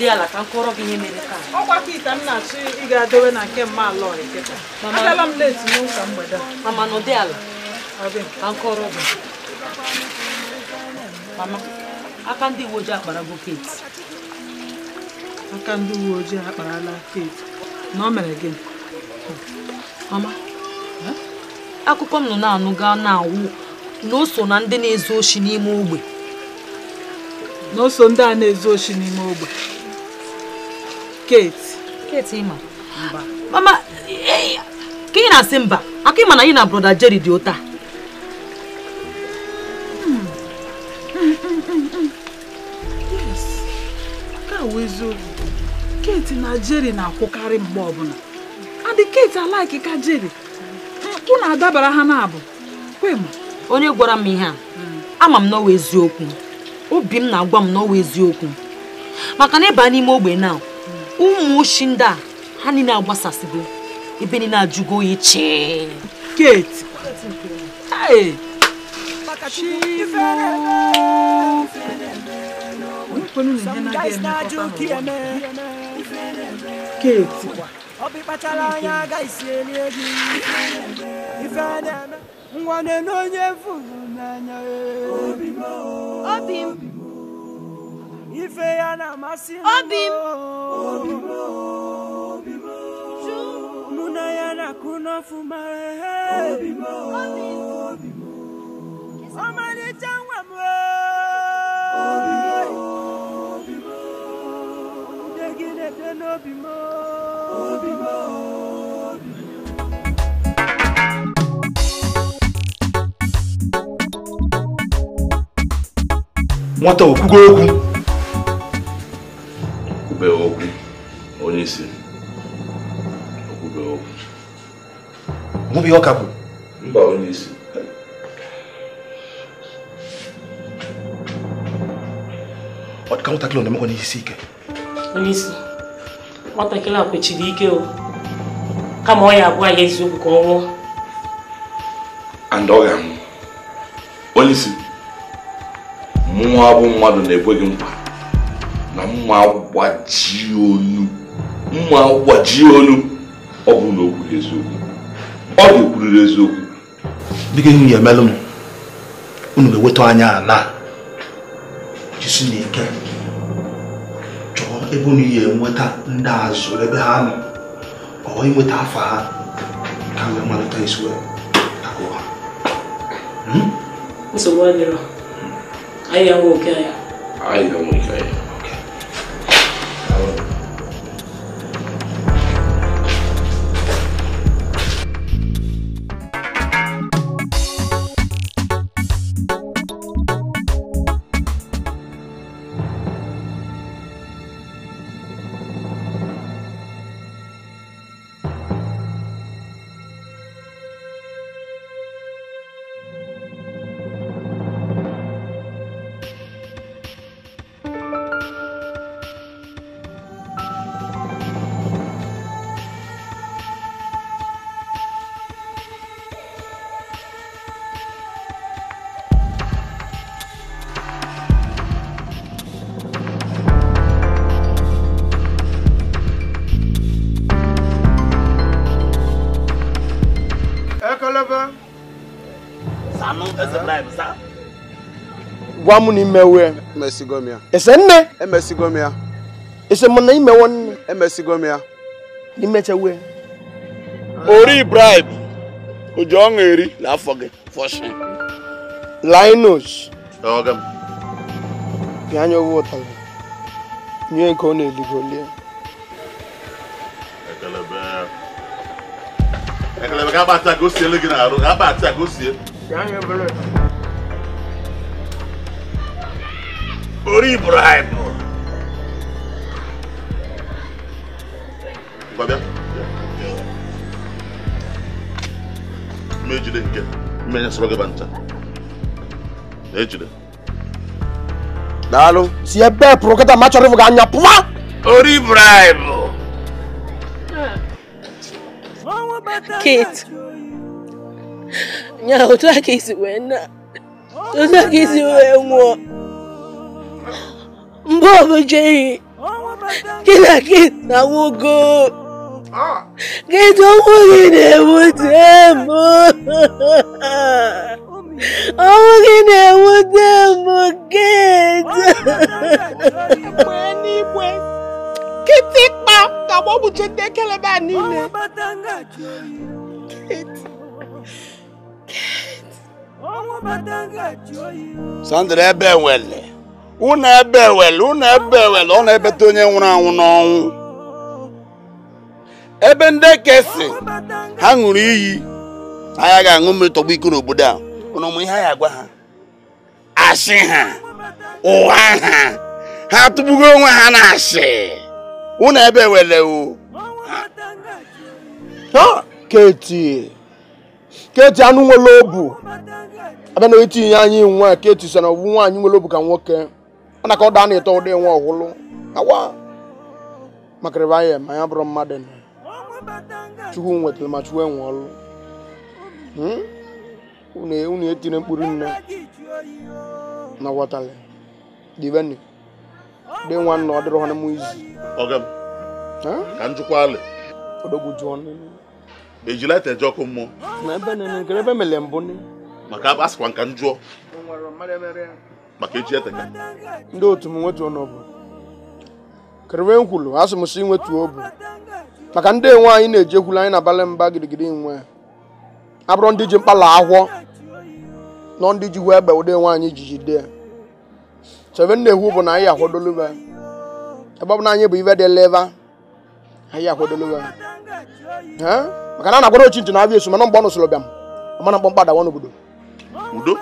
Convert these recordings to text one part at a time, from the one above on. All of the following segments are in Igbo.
nọdụ ala ka m gị ihe mere taa. ọkwa ite m na-achọ ị ga-adowe na nke mma ala ọrịa m leti ala ka m gị mama aka ndị uwe ojii keti aka ndị uwe ojii akparala keti na ọ mere gị mama akụkọ m nọ na-anụ gaa na-awụ na na ndị na-ezu oshi n'ime ogbe a na-ezu oshi n'ime ogbe Kate. Kate ịma. Mama, ka ị na-asị mba, aka ịma na anyị na broda Jerry dị ụta. awụ eziokwu Kate na Jerry na-akwụkarị mgbe ọbụla adị Kate alaiki ka Jerry unu adabara ha na-abụ kwem onye gwara m ihe a ama m n'ọwa eziokwu obi m na-agwa m n'ọwa eziokwu maka na ịba n'ime ogbe naa. ụmụ ushi ndị a ha niile agbasasịgo ebe niile ajụgo oyi ai, keti keti nwa na onye furu n'anya obi m ife ya na amasị m mụ na ya na-akụ n'ọfụma ọmalịcha nwa m ude gị na-ede n'obi m nwata okwugo okwu okube ọkụ onye isi okube O que ọka bụ mba onye isi ọ dịka nwatakịrị na-emekwa n'ihe isi ike onye isi nwatakịrị a kwechiri ike o kama ọ ya abụọ ya eziokwu ka ọ nwụọ and ọ ga-anwụ onye isi mmụọ abụ mmadụ na-ekweghị nkwa na mma gbaji olu, mma gbaji onu ọ bụrụ na o ọ ga-ekwuriri eziokwu biko ihu ya emelụ m unu ga anya ala jisi n'ike chọọ ebe unu ya enweta ndị azụ ebe ha nọ ọwa inweta afọ ha ka wee malite isi wee hmm? nsogbu anyị ya oke gwa mụ na imewe ya emesigo ese nne ese m na imewe nne emesigo na ori bribe oji ọṅụ eri gị fọshin linus bịa anya ọgwụ ụta gị e nye nke ọ na-eligolie ekelebe ga-akpa ata ka o sie gị arụ ga-akpa ata ka orí Ibrahim. gbàgbá mmejide nke mmenya sọrọ gị ba ncha ejide daalụ si ebe pụrụ kịta ma chọrọ ịfụ gị anya pụwa ori Ibrahim Kate nya otu a ka esi wee na otu a bó mo ṣe rìn kí ni kí ìnáwó go kí tó wù mí ni mo tẹ́ mọ́ ọwọ́ kí ni mo tẹ́ mọ́ gẹ́ẹ̀tì. Kìtì pa tàbọ̀ bù ṣe dé kẹlẹ́bà nílẹ̀. Kìtì. Kìtì. Sandra ẹ bẹ̀ wẹ̀lẹ̀. unu ebe ewele unu ebe ewele ọ na-ebeta onye nwụrụ anwụ n'ọnwụ ebe ndị ekesi ha ṅụrụ iyi anyị ga-aṅụ mmiri tọgbọ iko n'obodo a ụnụ ụmụ ihe anyị agwa ha asị ha Ụwa ha ha tụgbugo onwe ha na asị unu ebe ewele o keti keti anụ nwere obu abịa na etinye anyị nwa keti so na ọ bụ nwaanyị nwere obu ka nwoke mana ka ọ daa na-eto ụdị nwa ọhụrụ awa makịrịba ya ma ya bụrụ mmadụ na chukwu nwetara ma chukwu enwe ọrụ unu etiri mkpụrụ nne na wọtali diveni dị nwa nna ọ dịrị ha mụ izu ka njụkwa alị odogwu jụọ nne ejila ete eje ọkụ mmụọ na ebe nene nkere ebe mele mbụ maka a sịkwa nka njụọ maka echi eteka ndị otu m nwetuo n'obu kerewe nkwulu asị m si nwetuo obu maka ndị enwe anyị na-eji ekwulu anyị na-abalị mba girigiri nwe abụrụ ndị ji mkpala ahụọ nọ ndị ji hụ egbe ụdị enwe anyị jiji dị ya chebe na ehu bụ na anyị akwadoluba ebe ọ bụ na anyị bụ ibe dị leva anyị akwadoluba maka na a na-akwado ochi ntị na abịa esu mana mgbe ọ nụsoro bịa m mana mkpọmkpa dawa n'obodo udo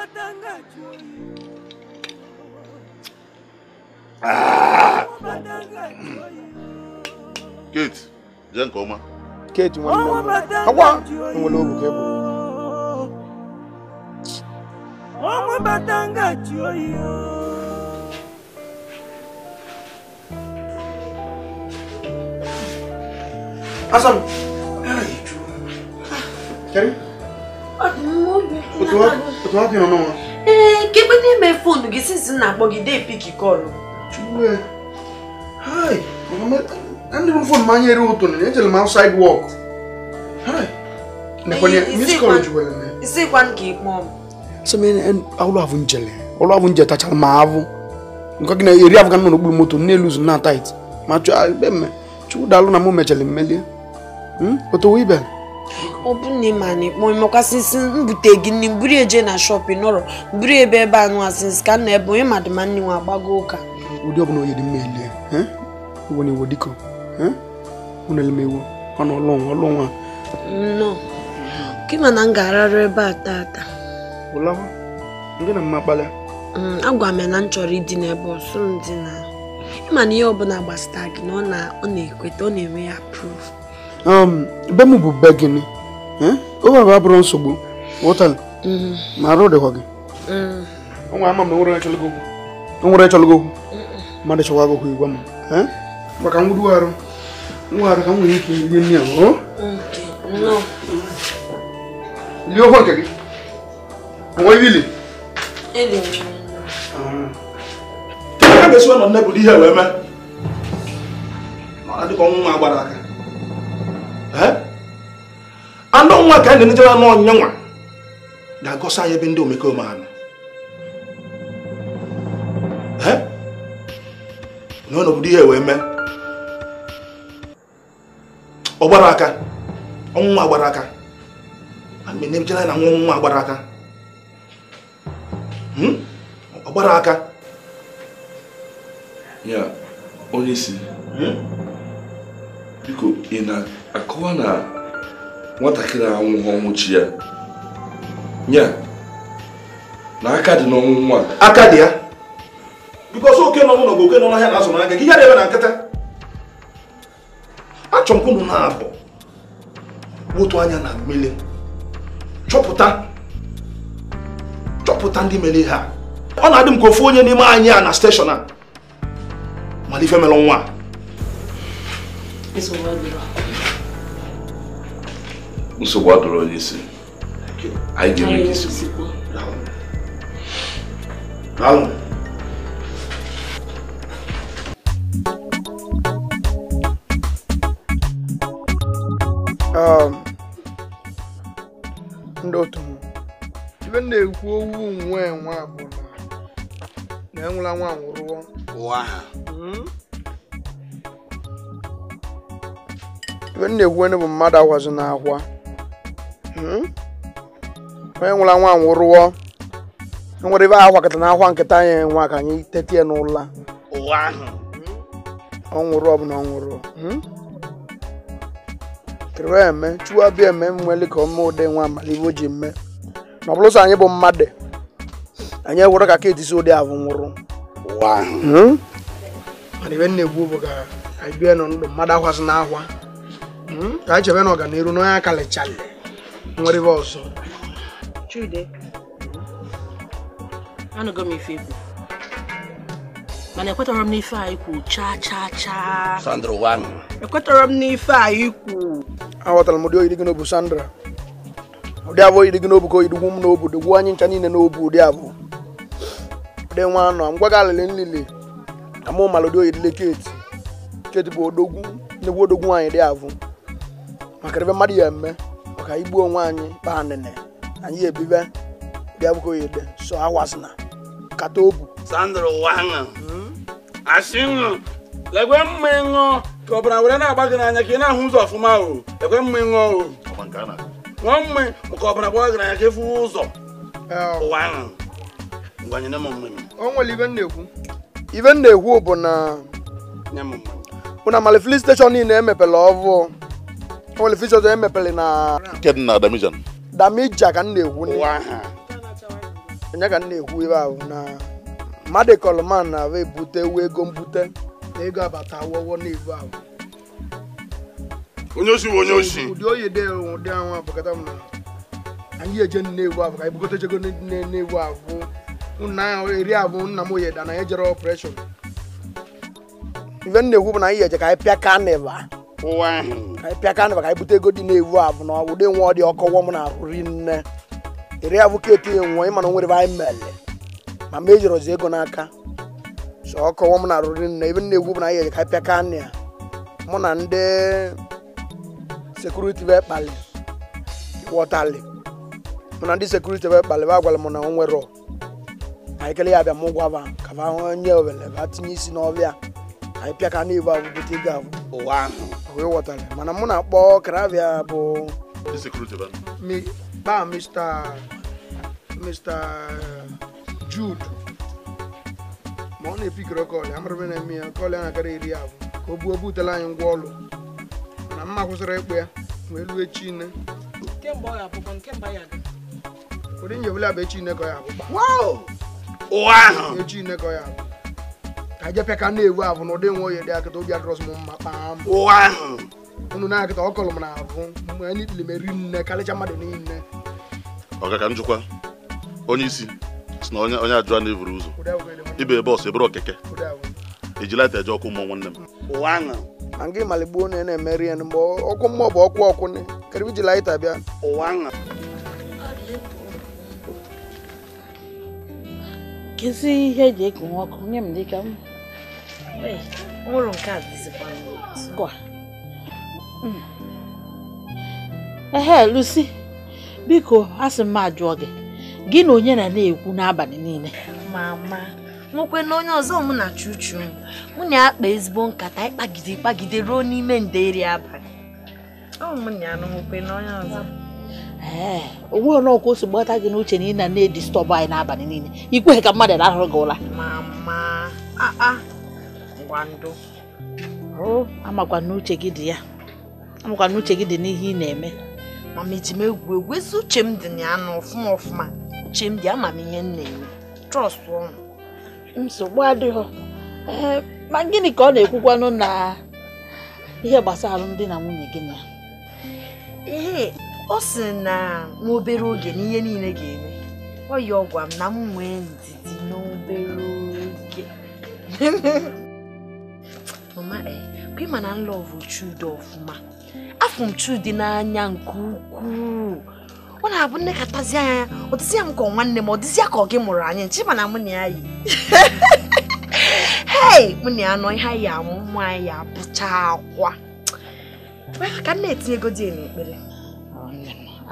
Kate jẹ́ nǹkan ọmọ. Kate wọn ni wọn mọ àwa ń wọlé òrùn kẹ́kọ̀ọ́. ọmọ bàtàǹgà tí ó yí o. Asam, kẹ́rin. Otu wa kí n nọ n'ọnwa. Ee, kegbe n'ime fonu gị since na-akpọ gị dee pik kọlụ. Chukwe. Hi. I'm not even from my area. I'm outside work. Hi. Isikwa nke ikpe ọmụ. nje tachara Nke na eri avụ nọ n'okpuru moto na-eluzu na tait. Ma chụọ ebe mme. Chukwu daalụ na mụ mechara Otu ọ bụ na ịma na mbute eje na shọpịn nọrọ mburu ebe ebe anụ asịnsị ka nna ebe onye madụma ụka ụdị ọbụla oyi dị mma elie iwo na iwo dịka unu eh? elemewo ọnụ ọlụnwa ọlụnwa nnọọ kịma na m ga-ararụ ebe a taa. ụlawa ndị na mma kpalịa mm, agwa m na m chọrọ ịdị n'ebe ọsọ m dị na ịma na ihe ọbụla gbasara gị na ọ na-ekweta ọ na-enwe ya proof um, be m bụ be gịnị eh? oge bụ abụrụ nsogbu wụtala mm-hmm. ma arụ dịkwa gị mm. o ama m na o nwere chọlụgo okwu mara cewa ba ku yi gwamma dua kan dua orang kamu ini wani ke yin ne ho liyo ho kage wai wili ele ka ga so nan na budi mau wai ma ma adu mau ma gbara eh ya be ndo na obodo ihe wee mee ọ aka ọnwụnwa gbara aka mgbe na na nwa agbara gbara aka hmm? ọgbara aka ya onye isi hmm? biko ị na-akọwa na nwatakịrị anwụghị ọnwụ chi ya ya na aka dị n'ọnwụ nwa aka dị ya bikos oke nọ n'ụlọ bụ oke nọ n'ahịa na-asọ n'aka gị na-eme na nkịta achọrọ na-abụ wotu anya na chọpụta chọpụta ndị mere ha ọ na-adị m ka ofu onye n'ime anyị a na steshọn a mere nwa nsogbu adụrụ onye isi anyị ga-eme ndị otu m ibe na-ekwu owu nwe nwa abụọ na enwela nwa nwụrụọ hmm? ibe na-ekwu bụ mmadụ agwazi n'akwa hmm? onye nwụla nwa nwụrụọ enwere ebe ahụ kata na akwa nkịta anyị nwa ka anyị tete ya n'ụla hmm? ọ nwụrụ ọ bụ na ọ nwụrụ kere eme chukwu abịa eme mmeli ka ọma ụdị nwa o ji mme na ọ bụrụ sọ anyị bụ mmadụ anyị ewere ka ka etisi ụdị ahụ nwụrụ hmm? mana ibe na-egbu bụ ka anyị bie mmadụ akwasị na ahwa hmm? ka anyị chebe na ọganiru n'onye aka lechali mana ekwetọrọ m n'ife a ikwu chaa chaa chaa Sandra wan ekwetọrọ m n'ife a ikwu aghọtara m ụdị oyi gị n'obu Sandra ụdị abụ oyi dị gị n'obu ka oyi dịgwu m n'obu dịgwu anyị ncha niile n'obu ụdị abụ ụdị nwa anọ m gwa gị alịlị nlili ka mụ mara ụdị oyi dịle keti keti bụ odogwu nnekwu odogwu nwaanyị dị abụ maka ebe mmadụ ya eme maka igbuo onwe anyị baa nene anyị ebibe ụdị abụ ka oyi dị so awasịna kata obu Sandra wan asị ṅụ lekwe mma ịṅụ ka ọbara were na-agba gị n'anya ka ị na-ahụ ụzọ ọfụma o lekwe mma ịṅụ o ṅụọ mma maka ọbara gbawa gị n'anya ka ịfụ ụzọ ụwa ahụ ngwanyere m mma o nwere ibe na-ekwu ibe nna ekwu bụ na bụ na steshọn niile emepere ọvụ nwere filin steshọn emepere na nke dị na damija damija ka m na-ekwu enye ka m na-ekwu ebe ahụ na mmadụ kọlụman na-abụ ebute wee ego mbute ego abata awọwọ n'ebu ahụ onye osi onye osi ụdị oyi dị ụdị ahụ abụkata m anyị eje nnewu abụ ka anyị bugote chego nnewu abụ nna eri abụ nna m oyeda na anyị jere ọpreshọn ife na-ekwu bụ na anyị eje ka anyị pịa kanịva anyị pịa kanịva ka anyị bute ego dị na-ewu abụ na ụdị nwa ọ dị ọkọwọ m na ahụ rinne eri abụ ka etinye nwa ịma na nwere anyị mere ma mama ejirọzi ego n'aka so ọ kọwa m na-arụri nna ebe na-egwu bụ na anyị ka pịa ka nna ya mụ na ndị sekuriti wee kpali wọtali mụ na ndị sekuriti wee kpali ba gwara m na o nwere anyị kele ya abịa m gwaba ka ba onye owele ba tinye isi n'ọbịa anyị pịa ka n'igbo ahụ bute ego ahụ ụwa ahụ wee wọtali mana mụ na-akpọ karavia bụ kpa Mr. Mr. Jude ma ọ na-epikọrọ kọlị amụrụbe na-eme ya kọlị a na-akara iri abụ ka o buo butela anyị ngwa ọlụ na mma kwụsịrị ịkpụ ya wee lue chine ụdị nje bụla bụ echine ka ọ ya abụ echine ka ọ ya abụ ka jepịa ka na-ewu abụ na ụdị nwa oyi dị akịta obi adịrọs m mma kpaa m unu na-akịta ọ kọlụ m na abụ mgbe anyị ikpili m eri nne karịcha mmadụ niile ọga ka m jụkwa onye isi si na onye a na eburu ụzọ ibe bọọsụ eburu okeke ejilata eje ọkụ mmụọ nwanne m na gị maligbuo onye na-emeri ya mgbe ọkụ mmụọ bụ ọkụ ọkụ kere iji laịta bịa ụwa ihe eji ọkụ nye m dịka m a dịzikwa m hmm. ajụọ gị gị na onye na na-ekwu n'abalị niile mama nwekwe na onye ọzọ mụ na chuchu mụ na akpa ezigbo nkata ịkpagide ịkpagide ruo n'ime nderi abalị ee onwe ọnọkụ osi gbata gị n'uche na ị na na-edistọbụ anyị n'abalị niile ikweghị ka mmadụ lahụrụ gị ụra amakwa n'uche gị dị ya amakwa n'uche gị dị n'ihe ị na-eme mama eji m egwu egwu ezi uche m dị na ya na ọfụma ọfụma chemdi amamihe m na-eme trọst ụnụ nsogbu adịghị ma gịnị ka ọ na-ekwukwanụ na ihe gbasara alụmdi na nwunye gị na ihe ọ sị na nwa obere oge na ihe niile ga-eme ọ yi ọgwa m na m nwee ndidi n'obere oge mama e, ma na nlọvụ Chude ọfụma afụ m Chude n'anya nke ukwuu ọ na-abụ nne katazi anya ya ọ dịzi m ka ọ nwanne m ọ dịzi ka ọ gị mụrụ anyị nchi mana mụ na ya yi hei mụ na ya nọ ihe anyị amụ mụ anyị ya apụcha akwa ka nna etinye ego dị n'ekpere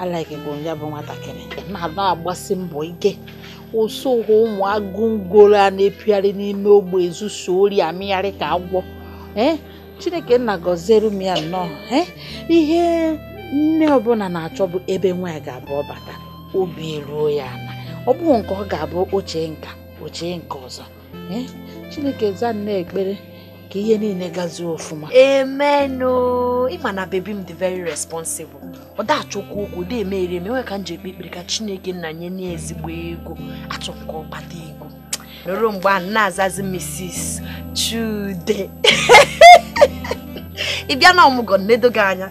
alaghị bụ ya bụ nwatakịrị na-anọ agbasi mbọ ike ụsụ ụhụ ụmụ agụngolo a na-epigharị n'ime ogbe ezuso ori amịgharị ka agwọ eh, chineke nna gọziere m ya nnọọ eh, ihe nne ọbụla na achọ bụ ebe nwa ya ga-abụ ọbata obi ruo ya na ọ bụghị nke ọ ga-abụ oche nka oche nke ọzọ chineke za nne ekpere ka ihe niile gazie ọfụma emenụ ịma na bebi m dị very responsible ọ da achọkwa okwu dị eme ere eme ka m ji ekpe ekpere ka chineke nna nye n'ezigbo ezigbo ego achọ ka ego nọrọ mgbe a na-azazi mrs chude ị bịa na ọmụgọ na gị anya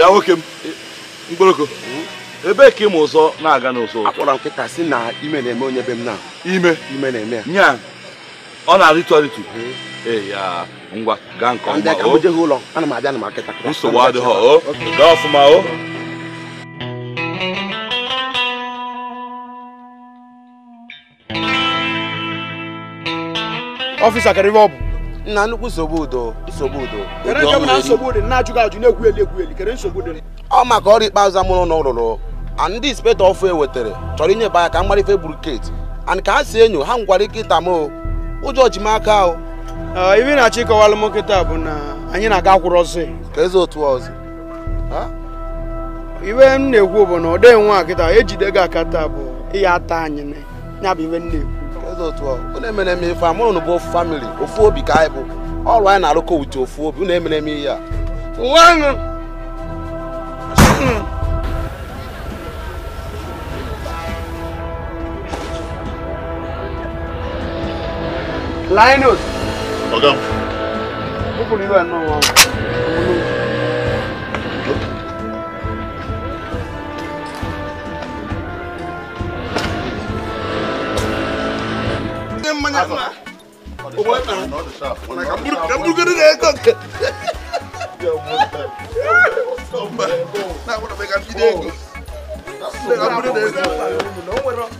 bịa nwoke m mkpọrọko ebe ka ịmụ ụzọ na-aga n'ụzọ akpọrọ nkịta si na ime na-eme onye be m na ime ime na-eme ya ọ na-arịtụ arịtụ ya ngwa gaa nke ụlọ ana m o gaa ọfụma o ọfịsa ọ bụ nna nnukwu nsogbu udo nsogbu udo ọ maka ọrụ ikpeazụ amụrụ na ụlụrụ ndị inspektọ ọfụ e wetara chọrọ inye baya ka mgbarife buruketi and ka ha si enyo ha ngwara nkịta m ụjọ ji m aka ahụ ibe na-achọ ịkọwalụ m nkịta bụ na anyị na-aga akwụrụ ọzọ ka eze otu ọzọ iwe m na-ekwu bụ na ọ dịghị nwa nkịta ejide gị aka taa bụ ihe ata anyị ya bụ iwe m na-ekwu dị otu unu emere m ife bụ ofu famili ofu obi ka anyị bụ ọrụ anyị na-arụkọ ute ofu obi unu emere m ihe a Linus. Ọ̀gá. Ó kò nílò wani ma wannan hamburgeri da ya kanka na wani mai kafi da ya kanka da hamburgeri da ya kanka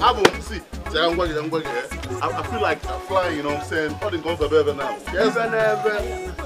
Abu, see, I'm going to I feel like I'm flying, you know what I'm saying? All the guns are better now. Yes, and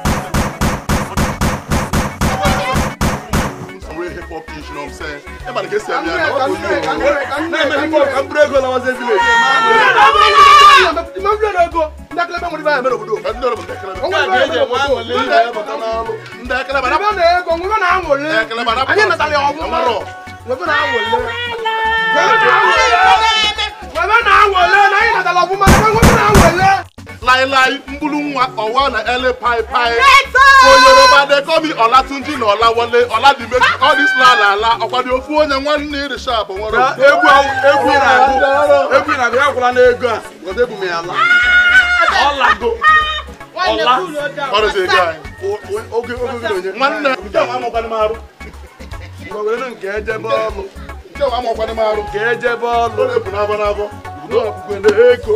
for pitch you know what I'm saying everybody get set here now what go do o na me go am break go na wan say village ma break na go ndakele bẹ mo di báyìí. mẹ́rọ̀bù dò ẹ̀ ndọ̀rọ̀ bọ̀ tẹ̀kẹ̀lẹ̀ bẹ̀. ọwọ́ ìgbà yẹn wọ́n wọlé yẹn bẹ̀ bọ̀ tán náà. ndẹ̀kẹ̀lẹ̀ bàdà. ìbọn náà ẹ̀kọ́ ńgbọ́n náà wọlé. ẹ̀kẹ̀lẹ̀ bàdà bọ̀. ayé nàtàlẹ̀ ọ̀gbọ́n. ọmọrọ. wọ́n náà wọlé. wọ́n náà wọlé. wọ́n náà wọlé. láíláí mbúlú nwa ọwa na ẹlẹ́ paipai onyeroba dekomi ọlátúnjí na ọláwọlé na all this la la ala ọ̀kwadì ofu onye nwanne iri sharp nwere egwu egwu na-agụ egwu na-agụ ya kwụla n'ego a weta ebu m ya la ọla ọrụzi ego anyị oge oge onye nwanne arụ nke ama arụ nke ọ na-ebu n'abọ n'abọ ego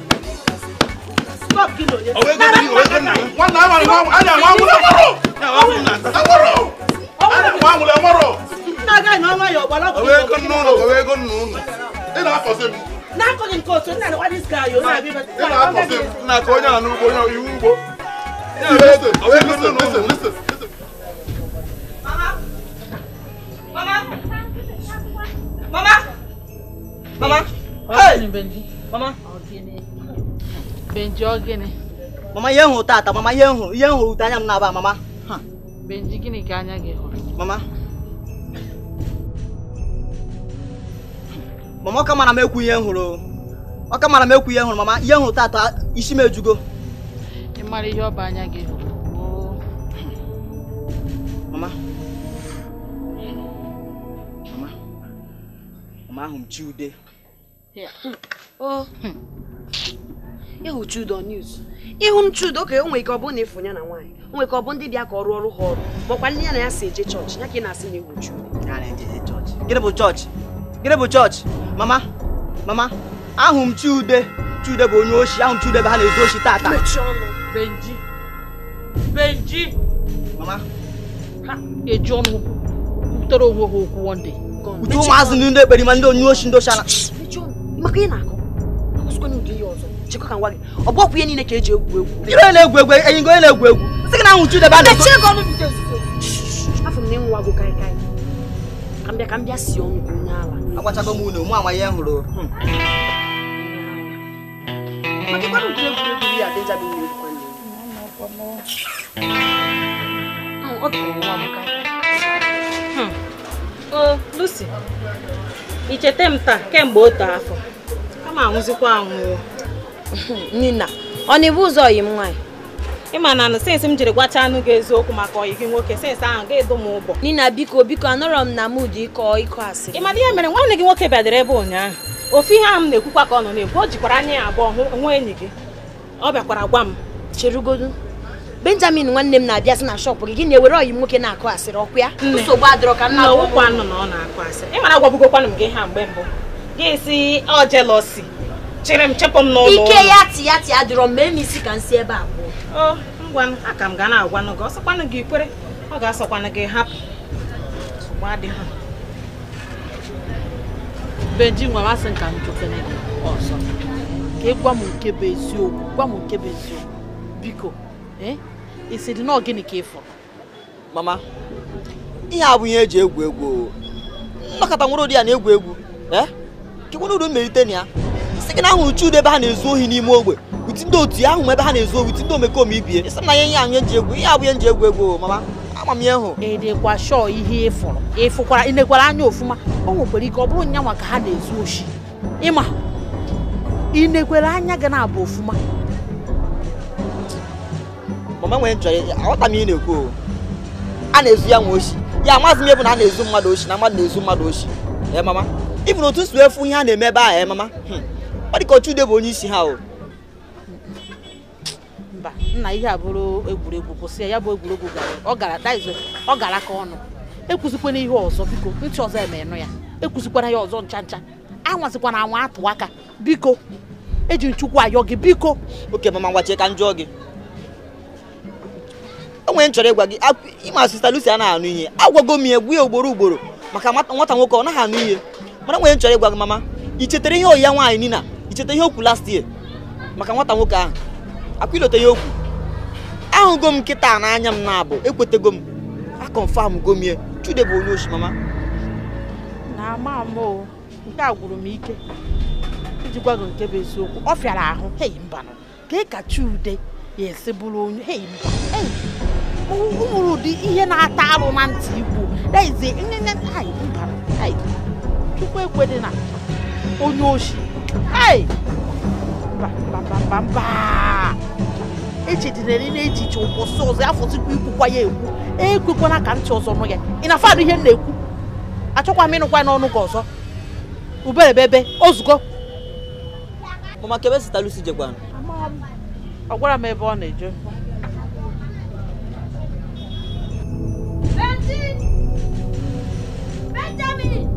four kilo yẹn. òwe mama mama mama mama. mama. Benji ọ gịnị? Mama ihe hụrụ tata, mama ihe hụrụ, ihe hụrụ ute anya m na-aba mama. Benji gịnị ka anya gị hụrụ? Mama. Mama ọ mara m ekwu ihe hụrụ. Ọ mara m ekwu ihe hụrụ mama, ihe hụrụ tata isi m ejugo. Ị mara ihe ọba anya gị hụrụ. Mama. Mama. Mama ahụ m chi ude. ịhụ Chudo news ịhụ Chudo ka enwe ike ọ bụrụ na efu ya na nwaanyị onwe ka ọ bụ ndị bịa ka ọ rụọ ọrụ ha ọrụ makwa ndị ya na ya si eje chọọchị ya ka ị na-asị na ịhụ Chudo gịnị bụ chọọchị gịnị chọọchị mama mama ahụ m Chude Chude bụ onye oshi ahụ m Chude bụ ha na-ezu oshi tata Benji Benji mama ha eji ọnụ butere onwe ha okwu wonde uju ụmụazị ndị ekperima ndị onye oshi ndị oshi ana maka ị na-akọ ọzọ chekwa ka gị ọ bụ ọkwụ ihe niile ka eji egwu egwu ire na-egwu egwu enyi na-egwu egwu sị gị na nwụchu debe a afọ m na ịnwa gụ kaị kaị ka m bịa ka m bịa si ọnụ ka onye ala m mụ anwa hụrụ hmm. hmm, ọ hmm. Lucy ichete m afọ kama anwụzikwa nina ọ na-ebu ụzọ yi m nwaanyị ịma na sensị m jiri gwacha anụ gị eziokwu maka oyi gị nwoke sensị ahụ ga-edo m ụgbọ nina biko biko anọrọ m na mud ịkọ ịkọ asị ị mara ihe mere nwanne gị nwoke bịadere ebe ụnyaahụ ofe ihe ahụ m na-ekwukwa ka ọ nọ na-ekwu o jikwara anya ya abụọ hụ nwa enyi gị ọ bịakwara gwa m cherugodu benjamin nwanne m na-abịa sị na shọpụ gị gị na-ewere ọyị nwoke na-akụ asịrị ọkụ ya nsogbu adịrọ ka nna ọ na-akụ asịrị ịmara m gị ha mgbe mbụ gị si ọ jelọsi chere m chepụ m n'ụlọ ike ya tiya ya dịrọ m mee m isi ka m si ebe a pụọ ngwa m aka m ga na-agwanụ gị ọsọkwanụ gị ikwere ọ ga-asọkwanụ gị hapụ benji nwa masị nka m jụkene gị ọzọ ka ị gwa m nke bụ eziokwu gwa m nke bụ eziokwu biko eh, ị sị dị na ka ị fọrọ mama ihe a bụ ihe eji egwu egwu nnọkọta nwere ụdị ya na-egwu egwu ee eh? kekwana udu mmelite na ya sị gị na ahụrụ Chude ebe ha na-ezu ohi n'ime ogbe uti ndị otu ya ahụ ebe ha na-ezu ohi uti ndị omekome ibie ịsị na ya ihe anyị eji egwu ihe abụ ihe nji egwu egwu mama ama m ya hụ edekwa shọ ihe ịfụrụ ịfụkwara inekwara anya ofụma o nwekwara ike ọ bụrụ nyanwa ka ha na-ezu oshi ịma inekwara anya gị na-abụ ofụma mama nwere nchọrọ aghọta m ihe na-ekwu a na-ezu ya nwa oshi ya amaghị m ebe na a na-ezu mmadụ oshi na mmadụ na-ezu mmadụ oshi ee mama ịbụ na otu si efu ihe a na-eme ebe ahụ ee mama hmm. ọ dị ka Ochude bụ onye isi ha o mba nna ihe abụrụ egwuregwu kwụsị ya ya bụ egwuregwu gara ọ gara daizo ọ gara aka ọnụ ekwuzikwana ihe ọzọ biko ntị ọzọ emenụ ya ekwuzikwara ya ọzọ ncha ncha anwazikwana anwa atụ aka biko eji nchukwu ayọ gị biko oke mama ngwachie ka m gị onwe nchọrọ ịgwa gị ịma sista a na anụ ihe agwago m egwu ya ugboro ugboro maka nwata nwoke ọ naghị anụ ihe mana onwe nchọrọ ịgwa gị mama i chetara ihe oyi ya nwaanyị nina cheta ihe okwu last year maka nwata nwoke ahụ akwilote ihe okwu ahụgo m nkịta n'anya m na-abụ ekwetego m akọnfam gomie chude bụ onye oshi mama na ama m nke a gwụrụ m ike iji gwa nke bụ eziokwu ọ ahụ hei mbanụ ka ị ka chude ya esi bụrụ onye ihe na-ata arụ na ntị igbo na onye oshi Hey! Mbambamba! Echedinere ị na-ejiche ụbọchị ọzọ afọzikwa ikwukwa ya ekwu na e ka ntị ọzọ nụ ya ị na-afadụ ihe m na-ekwu achọkwa m ịnụkwa n'ọnụ gị ọzọ uberebebe ozugbo mama kebe zụta lusi jekwanụ ọ gwara m ebe ọ na-eje Benjamin!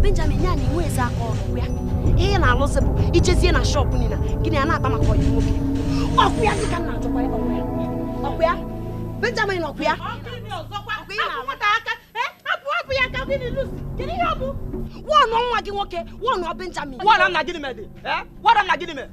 benjamin ya na inwe eze aka ọrụ ya ihe na-alụzi bụ ijezie na shọpụ niile gịnị a na-akpa maka ọyị nwoke ọkụ ya dịka na achọkwa ọkụ ya benjamin ọkụ ya wọnụ nwa gị nwoke wọnụ benjamin wọnụ nna gịnị mere dị wọnụ nna gịnị mere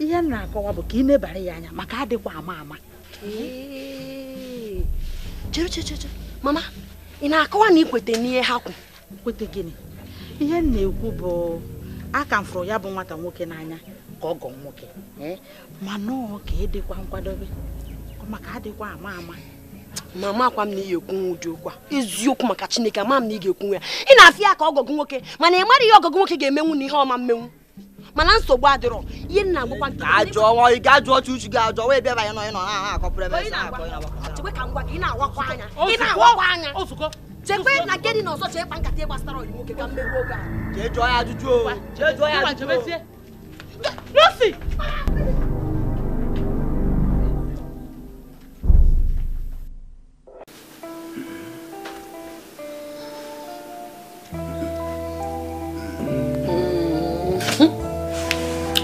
ihe m na-akọwa bụ ka ị nebara ya anya maka adịkwa ama ama mama ị na-akọwa na ikwete n'ihe ha kwu kwete gịnị ihe m na-ekwu bụ aka m ya bụ nwata nwoke n'anya ka ọ gọọ nwoke eh? mana e ọ ka ịdịkwa nkwadobe maka adịkwa ama ama mama akwa m na ị ekwu ụdị okwu a eziokwu maka chineke ama m na ị ga-ekwu ya ị na-afịa ya ka ọgọgụ nwoke mana ị mara ihe ọgọgụ nwoke ga-emenwu na ihe ọma mmenwu mana nsogbu adịrọ ihe nna agbakwa nke ajọ ọnwa ị ga-ajụ ọchụ uchu gị ajọ wee bịaba ya nọ ị nọ na akọpụrụ ebe chekwe ka ị na-awakwa anya ị na-awakwa na nke chee kpa nkata gbasara ọyị nwoke ka oge a jee jụọ ya ajụjụ jụọ ya ajụjụ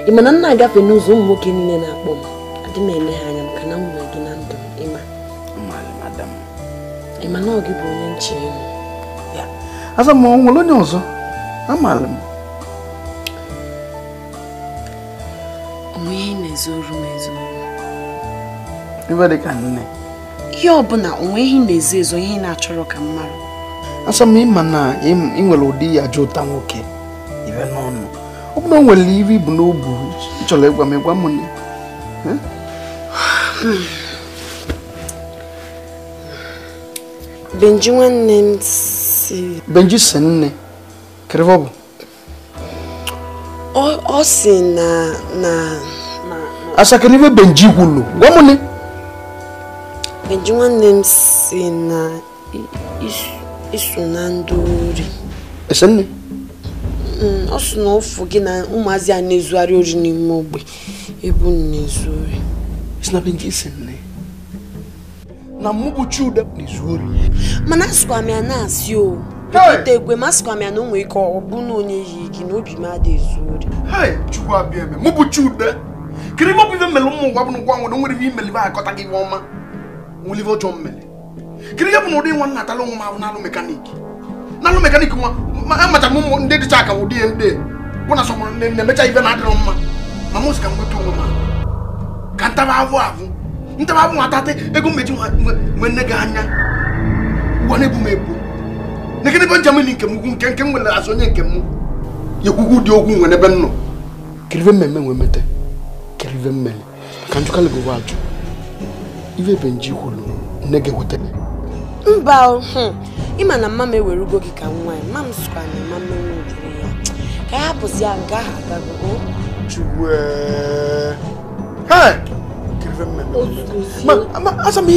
ị ma na agafe n'ụzọ ụmụ nwoke niile na-akpọ m adị m eme ha anya maka na m nwere gị na ndụ ịma ịma na ọ gị bụ onye nche ihu aza m nwere onye ọzọ amaala m onwe na-ezoru m ezoru iwe dị ka nne ihe ọbụla onwe ihe na-ezo ezo ihe na-achọrọ ka mmadụ asọ m ịma na ị nwere ụdị ya jụ ụta nwoke ibe n'ọnụ o bụrụ na oh, nwere iwe ibu n'obu chọrọ ịgwa m ịgwa m nne Benji nwanne não si Benji si nne kerebe ọ bụ na. si na na asakere ibe Benji gwulu gwa m nne Benji nwanne m na isso isso não ori esi ọ mm, sị na ụfụ gị na ụmụazị a na-ezugharị ori n'ime ogbe ebu na-ezu ori na ude na-ezu ori mana asịkwa ya na-asị o bipụta egwe ma asịkwa na o nwere ike ọ bụ na onye yi gị na obi adị ori chukwu mmele ụmụ bụ ngwa nwere nwere ihe akọta gị ọma nwelive ọjọọ mmele kiri bụ na ụdị nwa nna amacha m ụmụ ndị dịcha akamụ dị ya ndị bụ na sọmụrụ nne na-emecha ibe na-adịrọ mma ma m sika nweta onwe m ka ntaba avụ avụ ntaba avụ nwatatị ego mmechi nwe nne gị anya ụwa na-ebu m ebu na gịnị ebe njem ni nke m nke nke m aso nye onye nke m ekwugwu dị ogwu nwere ebe m nọ kirive mmemme nwee mete kirive mmemme ka njụkalị bụ ajụ ife ebe nji kwuru nne gị wetara mba hmm. ịma na mma m ewerugo gị ka nwa ya ma m na mma m ya ka ya hapụzi ya nga asa m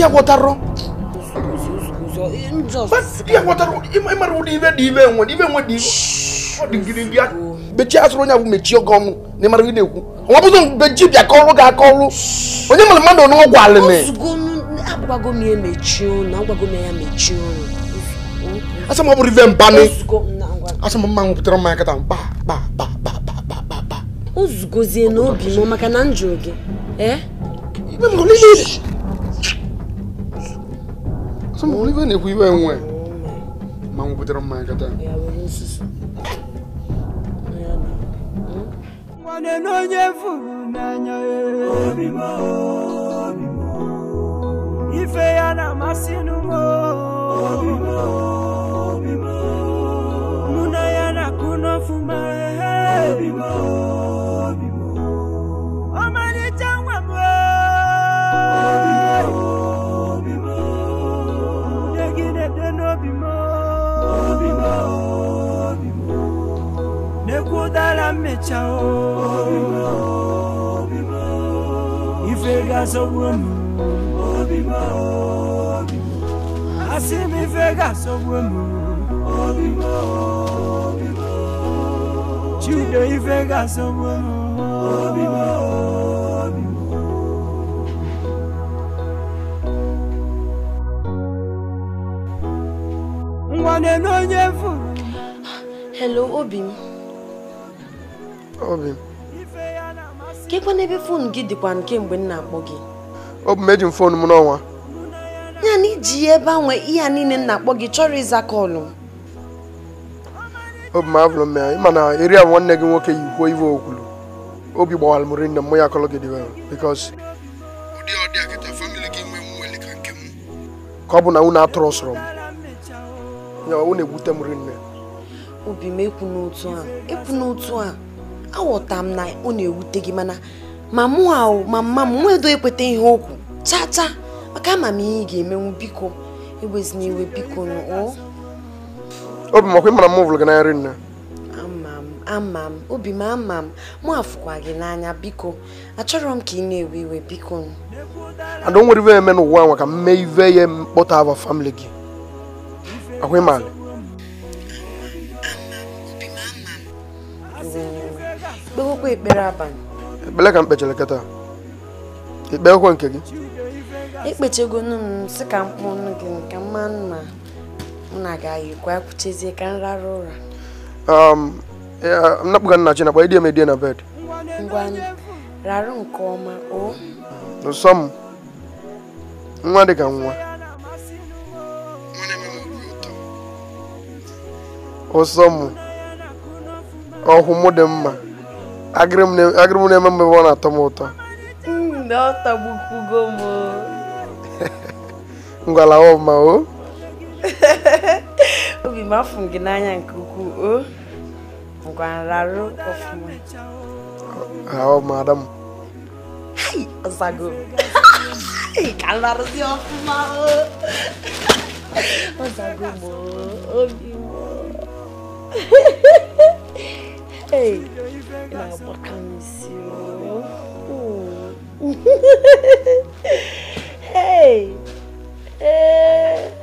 ihe mechie asụrụ onye abụ mechie oge na ịmara ị na-ekwu nwa bụzọ beji bịa kọrụ gị akọrụ onye mara mmadụ n'ọgwụ alịmị agwago ya mechie ọ bụrụ mma nwụpụtara mmanya kata mkpa kpa kpa kpa kpa kpa n'obi m maka na m gị e? na iwe nwe ma nwụpụtara mmanya kata nwanne na furu feya na masinumo muna ya na kuno fuma ọmọdéjà wà mọ́ dégidéde n'obi mọ́ nekwudala mmecha o ife ga-asọgbu omume obi m asị m ife ga m chido ife ga m na onye furu hello obi m obi m kekwa n'ebe fon gị dịkwa kemgbe m na-akpọ gị ọ bụ mejin fon m n'ọnwa ya na iji ya ebe anwe ihe a niile nna akpọ gị chọrọ ịza kọlụ obi m abụrụ m ị ma na eri ahụ nwanne gị nwoke yi kwuo iwe okwulu obi gbawara m rinne mụ ya kọlụ gị dịwe bikos ka ọ bụ na unu atụrụ sọrọ m ya unu egwute m nne. obi m ekwu n'otu a ekwu n'otu a aghọta m na ọ na-ewute gị mana ma mụ ahụ ma mma m nwedo ekweta ihe okwu chaa chaa maka ama m ihe ị ga-emenwu biko egbezina iwe biko obi m ọkwa ịmara m hụrụ gị nri nne ama m ama m obi m ama m mụ afụkwa gị n'anya biko achọrọ m ka ị na-ewe iwe biko ada o nwere ive eme n'ụwa anwa ka m mee ive ya mkpọta aba famili gị ahụ ịmalị kpewekwa ekpere abalị Ekpele ka m kpechara kịta ikpe ekwe nke gị ekpechegonu m si ka mkpụ nụ gị ka mma mma m na-agaghịkwa kwuchezie ka m rara ụra um, napụga nna chi nakwa idiem edie na bed ngwa rarụ nke ọma o nsọ m nwa dị ka nwa ụsọ m ọhụmụ dị mma agịrị m na-eme mgbe ọ na-atọ m ụtọ ngwala ọma o obi m afụ gị n'anya nke ukwu o ngwararụ ọfụma ọma adam ọzago ka nrarụzi o Hey, now what miss you? Hey, hey.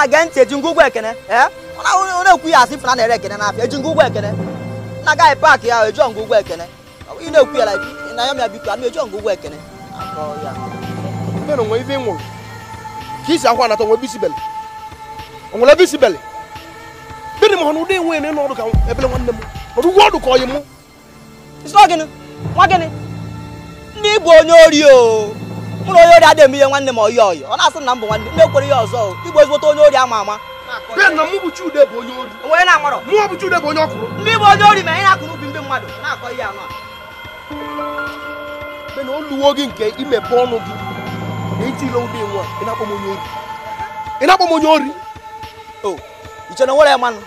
na ge ntị eji ngwugwu ekene onye ekwu ya asị fụna na-ere ekene n'afịa eji ngwugwu ekene na agaghị paakị ya eji ngwugwu ekene ị na-ekwu ya na ya mịa biko ana eji ngwugwu ekene mena onwe ife ị nwụrụ ka isi akwa anata onwe bisibeli onwere bisibeli bịrị m hụrụ ụdị enwe na n'ọrụ ka ebele nwanne m ọrụ ugwu ọdụ ka ọyị mụ nwa gịnị ndị bụ onye ori o mụrụ onye ori adịghị m ihe nwanne m oyi ọyị ọ na-asị na m bụ nwanne m kwere ihe ọzọ igbo ezigbote onye ori ama ama bịa na mụ bụ Chude bụ onye ori onye na-amarọ mụ bụ Chude bụ onye ọkụrụ ndị bụ onye ori ma ị na-akụ n'ubi ndị mmadụ na-akọ ihe anụ a na oluwo gị nke imepe ọnụ gị na iti ụdị nwa ị na-akpọ m onye ori ị na-akpọ m onye ori o iche na nwere ya mmanụ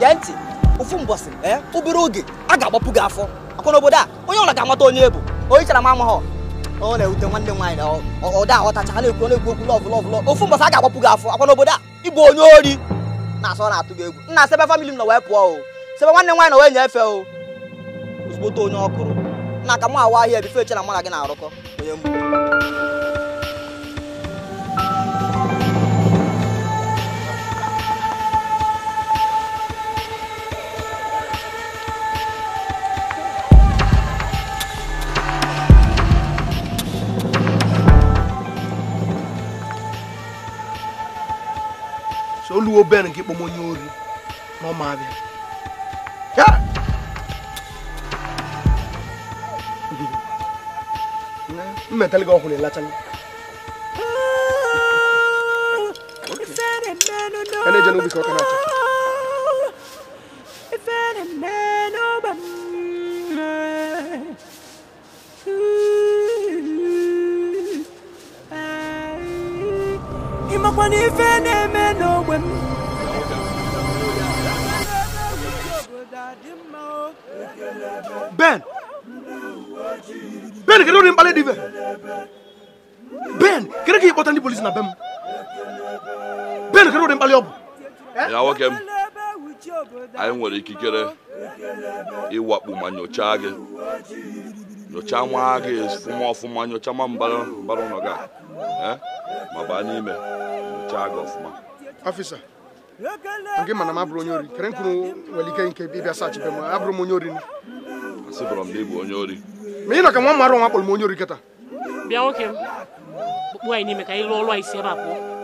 gee ntị ofu mbọsị ee eh, obere oge a ga-agbapụ gị afọ akwa n'obodo a onye ọla ga-amata onye ebu onye chara m amaghọ ọ na-ewute nwanne m nwaanyị na ọda aghọtacha na-ekwu na-ekwu okwu lọvụ lọvụ ofu mbọsị a ga-agbapụ gị afọ akwa n'obodo a ịbụ onye ori na-asọ na-atụ gị egwu nna sebe famili m na wee pụọ o sebe nwanne m nwaanyị na wee nyefe o ozugbo onye ọ kụrụ na ka m awa ahịa ebife eche mụ na gị na-arụkọ onye mgbu obere nke kpọm onye ori na ọma abịa mmetali gị ọhụrụ ịlachala ena-eje ka ọ ka na-achọ abalị ọbụ ya nwoke m anyị nwere ikikere ịwakpu ma nyochaa gị nyochaa nwa gị ọfụma ọfụma nyochaa ma mbara ụlọ gị eh? ma baa n'ime nyochaa gị ọfụma ọfịsa nke mana m abụrụ onye ori kere nkuru nwere ike nke ịbịa m abụrụ m onye ori m na ịbụ onye ori ma ị ka nwa mara nwa m onye m anyị n'ime ka anyị rụọ anyị a pụọ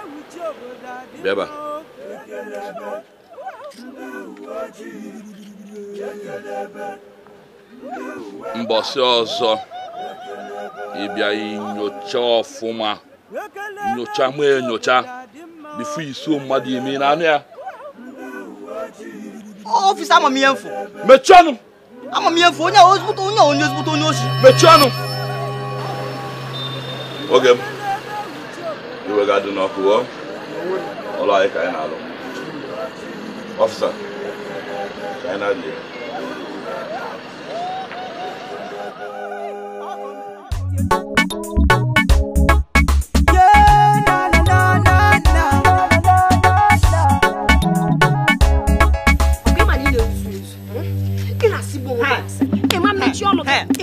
bịaba mbọsị ọzọ ịbịa inyocha ọfụma nyocha ma enyocha bifo iso mmadụ ime n'anụ ya ọfịs amamihe mfụ mechie ọnụ amamihe mfụ onye ozigbote onye onye ozigbote onye oshi mechie ọnụ oge m iwe ga-adị n'ọkụ wallahi ka yana alo officer ka yana je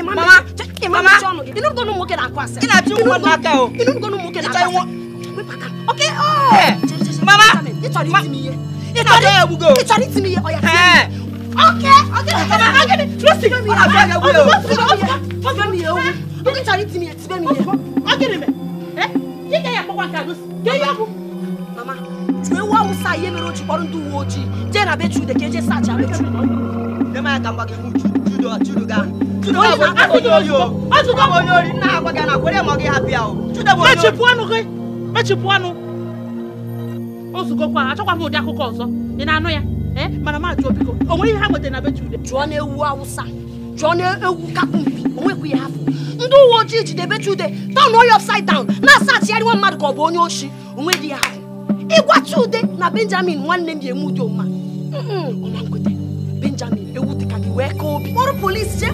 Mama, ina Okay, oh mama nítorí tí mi yẹ nítorí nítorí tí mi yẹ ọ̀yà tí mi yẹ. Okay, okay, okay. Okay, Lucy, ọ̀rọ̀ àbúrò yẹn wúlò. Fọ́jọ́ mi yẹn wúlò. Lókè tàrí ti mi yẹn tibẹ́ mi yẹn. Ọ̀gẹ̀dẹ̀ mẹ́. Ẹ kíkẹ́ yẹn kọ́kọ́ àkàdó sí. Gẹ́yẹ́ ọ̀bù. Mama, tùwé wọ́n mu sa iye mẹ́rin ojú kpọ́rọ́ ndú wo ojii. Jẹ́ na bẹ́ẹ̀ tuude kéje sá àjà bẹ́ẹ̀ tuude. Ẹ máa gàmbá gẹ̀ fún judo judo ga. Judo bọ̀ judo yìí o. Judo bọ̀ yóò rí nná àgbàgà nà kórè mọ́ gẹ̀ hapi à o. Judo bọ̀ yóò rí. Mẹ́tì pọ́nù o zukọkwa achọkwa m ụdị akụkọ ọzọ ị na-anụ ya eh? mana ma jụọ biko o nwere ihe ha nwetara na be Chude jụọ na ewu awụsa jụọ na ewu kapumpi o nwekwa ya afọ ndị uwe ojii jide be Chude taụn onye upside down na-asachigharị asa nwa mmadụ ka ọ bụ onye oshi onwe nweghị ya afọ ịgwa Chude na Benjamin nwanne m ya eme ụdị ọma ọma nkweta Benjamin ewu dịka gị wee ka obi kpọrọ polisi je.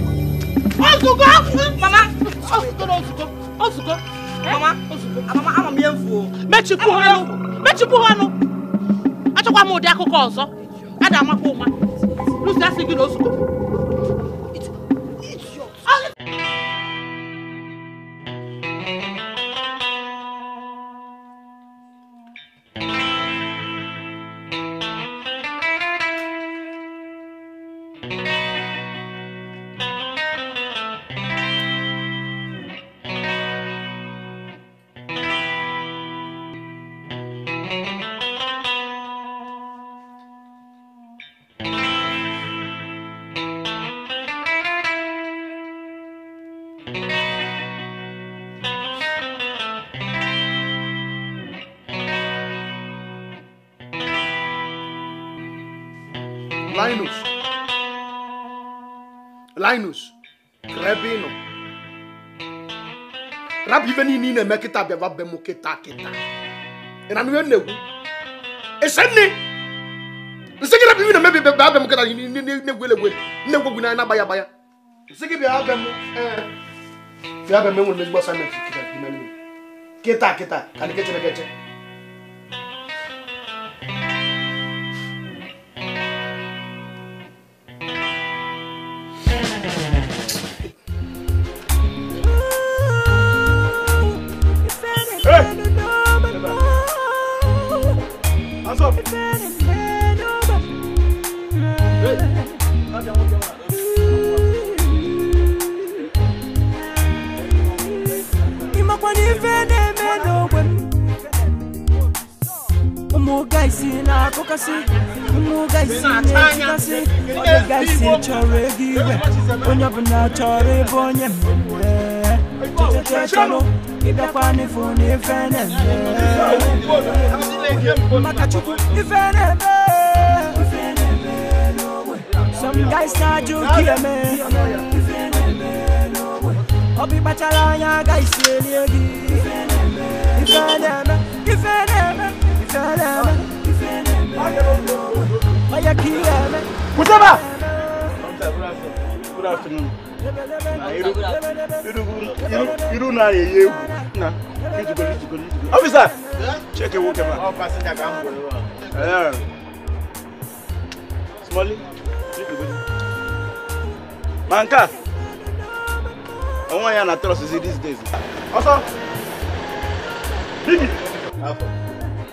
ozugbo mama ozugbo ozugbo ozugbo eh? mama ama m ihe mfu mechikwu ha mechipụ ha ọnụ achọkwa m ụdị akụkọ ọzọ a ga-amakwa ụma asị gị na ozugbo linus rebinu rabi ife niile ị na-eme kịta bịaba be m kịta kịta ị na-anụ ihe na-egwu esenni nsị gị rabi ife na-emebi bịa be m kịta na-egwu elegwe na-egwu egwu n'anya na-agbaya agbaya nsị gị bịa be m bịa be m enwere m ezigbo asaịmentị kịta kịta kịta ka anyị kechere keche akụkasị mmụga isi na-etikasị odega isi chọrọ ego igwe onye ọbụla chọrọ ịbụ onye mmemme chọchọchọ chọrọ ịbịakwa n'efu na ife na-eme maka chukwu ife na-eme some guys na-ajụ ka eme ọ bụ ịkpachara anya agaghị si elie gị ife na-eme ife na-eme ife na-eme Kusema. Good afternoon. Iru na yeye wu na yutugo yutugo yutugo. Officer. Check ewu kema. Ọ passenger ka n bolo wa. Smally. Manka. Ọwọ́ ya na trust these days. Ọsọ. Bibi. Afọ.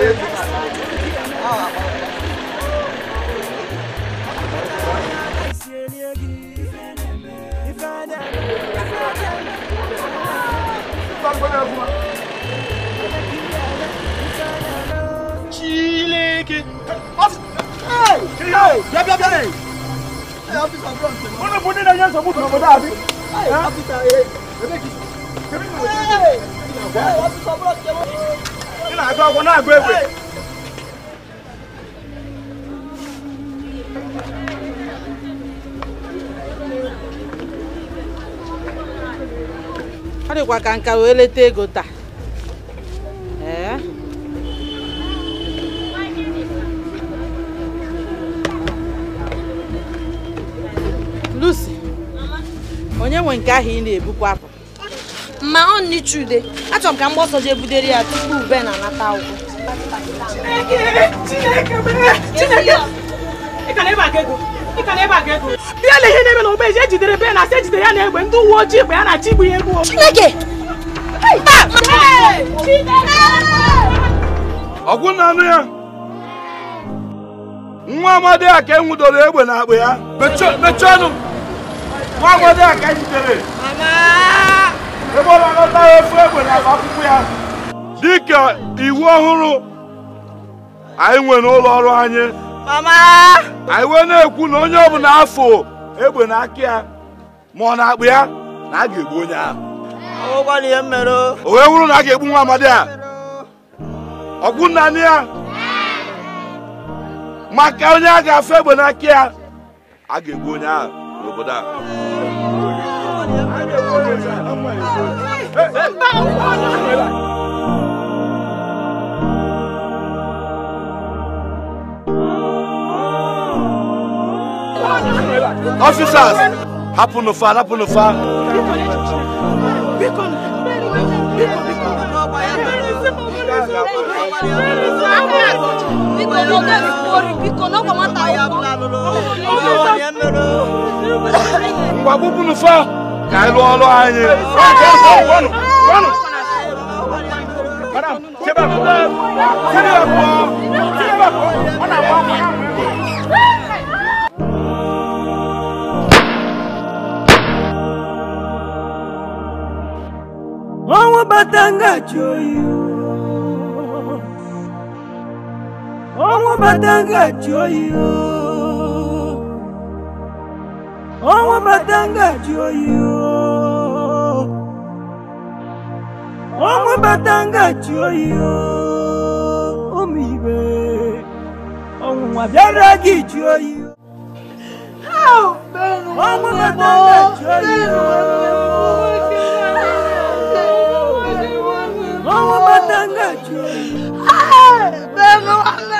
Chileke. Hey! Hey! Yab yab yab. Hey, officer Brown. Wọ́n ní bóde náà yẹn sọ fún tòun ọ̀dọ́ àbí. Hey, officer. Hey, officer Brown. ọ dịkwa ka nka wee leta ego taa Lucy onye nwe nke ahụ ị na-ebukwa apụ ma ọ nichude achọrọ m ka mgbe ọsọ jee budere ya tupu ube na-anata akwụkwọ bịa na ihe na-eme na ogbe eji ejidere be na asị ejidere ya na egbe ndị uwe ojii bụ ya na achị igbu ya egbu Chineke ọgwụ na anụ ya nwa amadi a ka enwudoro egbe na akpa ya mechie nwa amadi a ka ejidere e ọ na efu egbe na akwụkwọ ya dịka iwu ọhụrụ anyị nwe n'ụlọ ọrụ anyị anyị wee na-ekwu na onye ọ bụla afọ egbe na aka ya ma ọ na-akpụ ya na a ga-egbu onye ahụ o wee wụrụ na a ga-egbu nwa amadi a ọgwụ nna ya maka onye a ga afọ egbe aka ya a ga-egbu onye ahụ Officers, happen officers hapụ Happen hapụ n'ụfa Biko moga fori biko bubu nu fa ka lo lo anye. Wanu wanu. ohun matanga joyo ohun matanga joyo ohun matanga joyo omibe ohun abẹ́rẹ́ gi joyo. ohun matanga joyo. ohun matanga joyo. joyo, ló wà joyo.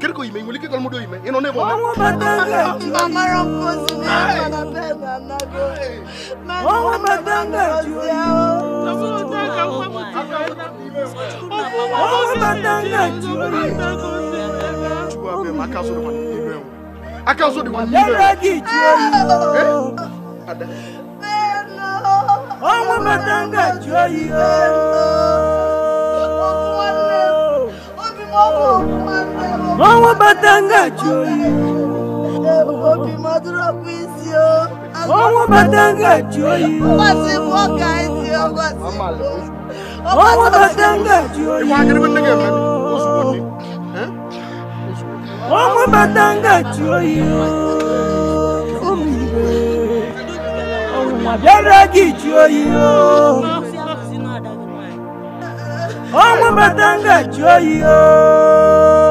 Kiriko imeimulika kile kalmudo ime. Inaone kwa Mungu matanga. Mama rompozi ni anapenda nako. Mungu matanga juu yao. Tunataka kwa Mungu matanga juu yao. Tuwape makazo kwa nini wewe? Akazo ni kwa nini wewe? Eh? Ada. Mungu matanga juu yao wọ́n wọ́n bá tanga jù orí. òbí mọ dúró pín sí o. wọ́n wọ́n bá tanga jù orí. ọba ti mú ọ̀gá ẹ̀ sí ọba ti mú. wọ́n wọ́n bá tanga jù orí. ìwà akérèmí tẹ́gẹ̀ mẹ́rin oṣù kò ní. wọ́n wọ́n bá tanga jù orí o. omi ìwé ọ̀hún àbẹ́rẹ́ gì jù orí o ọmọ bàtà ń gà jọ yìí ooo.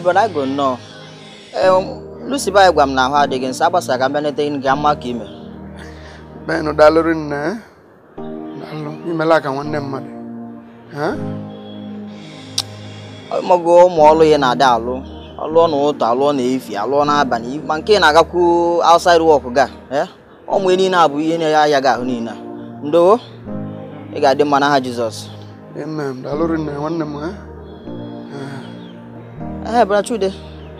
but I go know. Um, Lucy ba gwa m n'ahụ ahụ adịghị nsọ agbasara ka mbịa nete gị nke mma ka ime benụ dalụrụ nne eh? dalụ imela ka nwanne mmadụ eh? mọgo ụmụ ọlụ ya na-ada alụ alụọ n'ụtụ alụọ na-efi alụọ na-aba n'abalị ma nke na-agakwu outside work ga eh? ụmụ niile abụ ihe na-ya ya ga ahụ niile ndowo ị ga-adị mma n'aha Jizọs dalụrụ nne nwanne m É, eh, Brachude.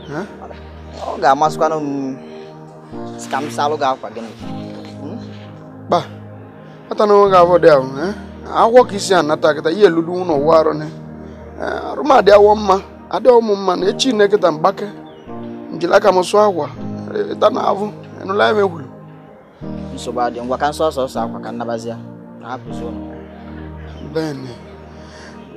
Hã? Oh, gak masuk kan hmm, scam salo gak apa gini. Hmm? Bah. Ata no gak apa dia, eh? Awo kisian nata kita iya no waro ne. Eh, rumah dia wamma, ada omumma ya, ne eh ne eh, kita mbake. Njila kama so awa. Ita na avu, enu la me ya, hulu. Nsoba dia kan so so sa kwa nabazia. apa hapo Bene.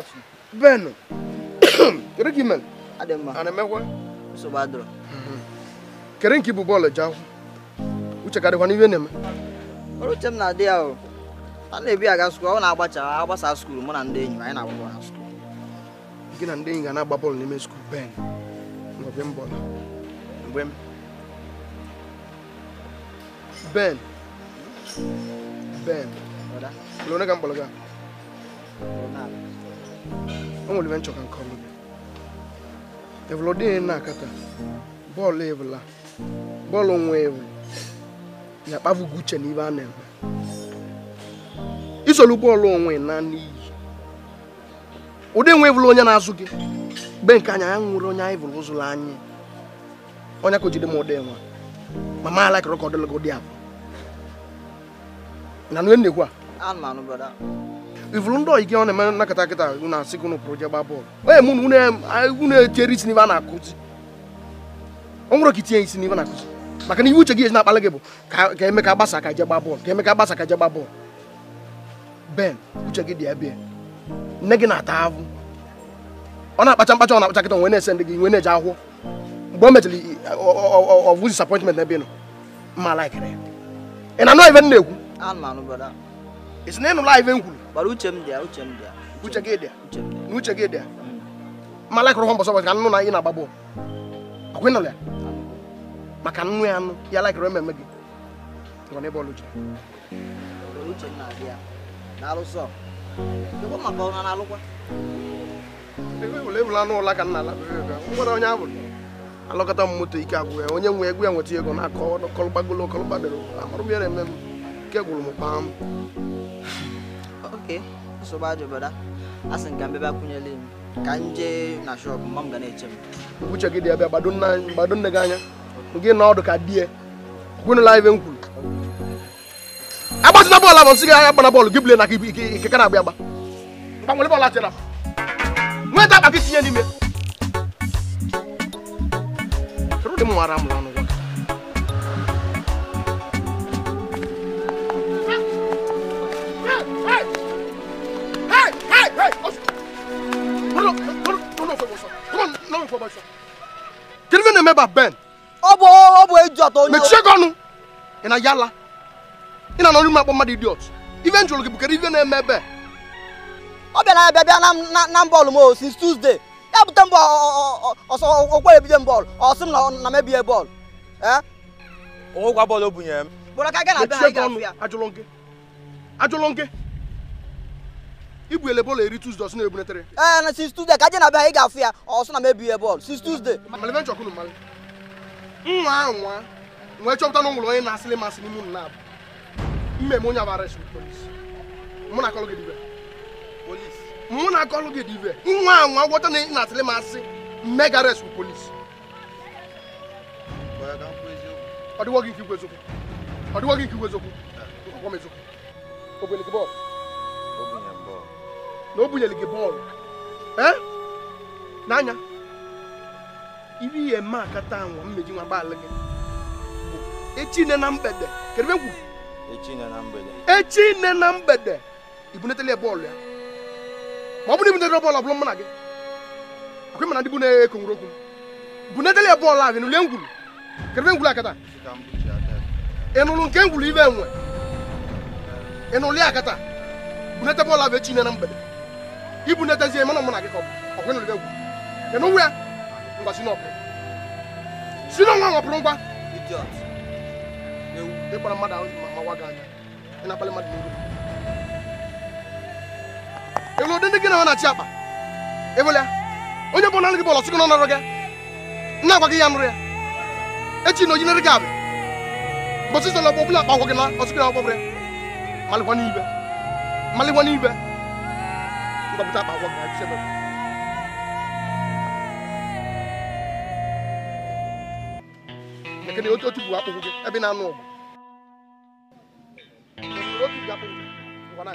afu. bẹ́ẹ̀ nù kere k'i mɛ. adama ani mɛ kɔ. muso b'a dɔrɔn. kere k'i bu bɔɔlɔ jan u cɛ ka di kɔni i bɛ nɛmɛ. olu di yan o hali na bi a ka sukulu aw n'a ba a aw ba sa sukulu n bɛna n den ɲininka a ye n'a bɔ a sukulu. i kana n den ɲininka n'a ba bɔlɔ ni mɛ sukulu bɛɛ nɔ bɛ n bɔ la n Ben, n lona kan bɔlɔ kan. lona. o nwere nchọka nke ọma gị evụl dị na-akata bọọlụ evụla bọọlụ nwa ewu ya kpavụgo uche na ibe a na-eme isolu bọọlụ onwe na n'iyi ụdị nwe evụla onye na-azụ gị be nke anya ya nwere onye anyị vụrụ ụzụrụ anyị onye ka o m ụdị nwa ma ma ala kịrọ ka ọ dị abụ na nwe nnekwu a ivụrụ ndị oyigi ọ na-eme nakọta na-asị gị ụnụ je gbaa bọọlụ onye mụ unu etiere isi n'ibe a na-akụzi ọ nwụrụ ka itinye isi n'ibe na-akụzi maka na iwu uche gị ezi na-akpali gị bụ ka Emeka ka gbasa ka je gbaa bọọlụ ka eme gbasa ka je gbaa bọọlụ ben uche gị dị ebe eh, nne gị na-ata ahụ ọ na-akpacha mkpacha ọ na-akpacha kịta nwe na-ese ndị gị nwe na-eje ahụhụ mgbe o mechara ọvụ disappointment n'ebe ị nọ mma laikere ị na-anụ ive m na-ekwu ị sị na ịnụla ive m kwuru Bara uche m dị uche m dị Uche gị dị Uche m Ma hụ mbọsọ ka nnụ na ị na-agba bọọlụ. Akwa ya? Maka nnụ ya nụ ya ala ememe gị. Ịgwa na ọlụ uche. Uche m na-adị Na-alụsọ. Ịgwa maka ọ ụla ka na-ala. Ngwara onye ahụ alọkọta m moto ike agwụ ya onye nwe egwu ya nweta ego na-akọ ọkọlụgbadoro amarụ gwụrụ m m oke so ba jo bada asin gambe ba kunya bịa kanje na shop mma ga na-eche m uche gị dị ebe gbado nne gị anya gị na odu ka die live ibe m na bola bọọlụ abụ nsị gị agha gbana bọọlụ ki bule na ike ka na-agba agba gbanwere bọọlụ atịra nweta akpa gị tinye n'ime ụdị m nwara m n'ọnụ information. Kedu na-eme ba Ben? Ọ bụ ọ bụ eju atọ onye. Mechie gị ọnụ. Ị na yala. Ị na anọrọ ime akpọ mmadụ idiot. Ife njụrụ gị bụ ife na-eme ebe? Ọ bịara abịa bịa na mbọọlụ m since Tuesday. Ya bute mbọ ọsọ okwere ebido mbọọlụ. Ọ m na mebie bọọlụ. Ee? bọọlụ o bunyere m. Ajụlụ gị. Ajụlụ gị. ibu ele bọọlụ eri tuzdee ọsụ na-ebunetere ee na since Tuesday, ka aje na be ha ị ga-afụ ya ọsụ na mebie ya bọọlụ since tuzdee malebe nchọkụ mmalị nwa ahụ nwa nwee chọpụta na nwere onye na-asịlị masị n'ime ụnụ na-abụ mmemme onye abara esi polis mụ na akọlụ gị dibe polis mụ na akọlụ gị dibe nwa ahụ nwa gwọta na ị na-asịlị masị mme gara esi polis ọ dịwọ gị nke ikwu eziokwu ọ dịwọ gị nke ikwu eziokwu ọgwọ m eziokwu ogbenike bọọlụ na o bunyere gị bọọlụ n'anya ibi ihe mma akata anwa mmeji nwa gbalị gị echi nne na mgbede kedụ echi nne na mgbede echi nne na mgbede ibunetele ya bọọlụ ya ma ọ bụrụ ibunetele bọọlụ ọbụla mụ na gị ọkwa ịmana ndị bụ na-ekongwuru okwu bunetele ya bọọlụ ahụ n'ule ngwuru kedụ ebe ngwuru akata ị nụrụ nke ngwuru ibe enwe ị nụrụ ya akata bunete bọọlụ ahụ echi nne na mgbede ibu na-etezie mana mụ na gị ka ọ bụ ọgwụ egwu nwe ngwa si n'ọpụ si n'ọnwa nwapụrụ ngwa ịkpara mmadụ ahụ ma mawa anya ị na-akpali mmadụ n'iru elu ụdị ndị gị na ọ na-achị akpa ewele onye bụ nanụ gị gị na ya ya na ojinere gị abịa mbọsị sọ na ọgbọ ọbụla akpa agwọ gị na ọsịkụ na ibe kọ̀mpútà bá wọ̀ ẹ̀ ṣẹ́ bẹ́ẹ̀. kene o tu bu apogo e bi na anu ogu o tu bu apogo ngwa na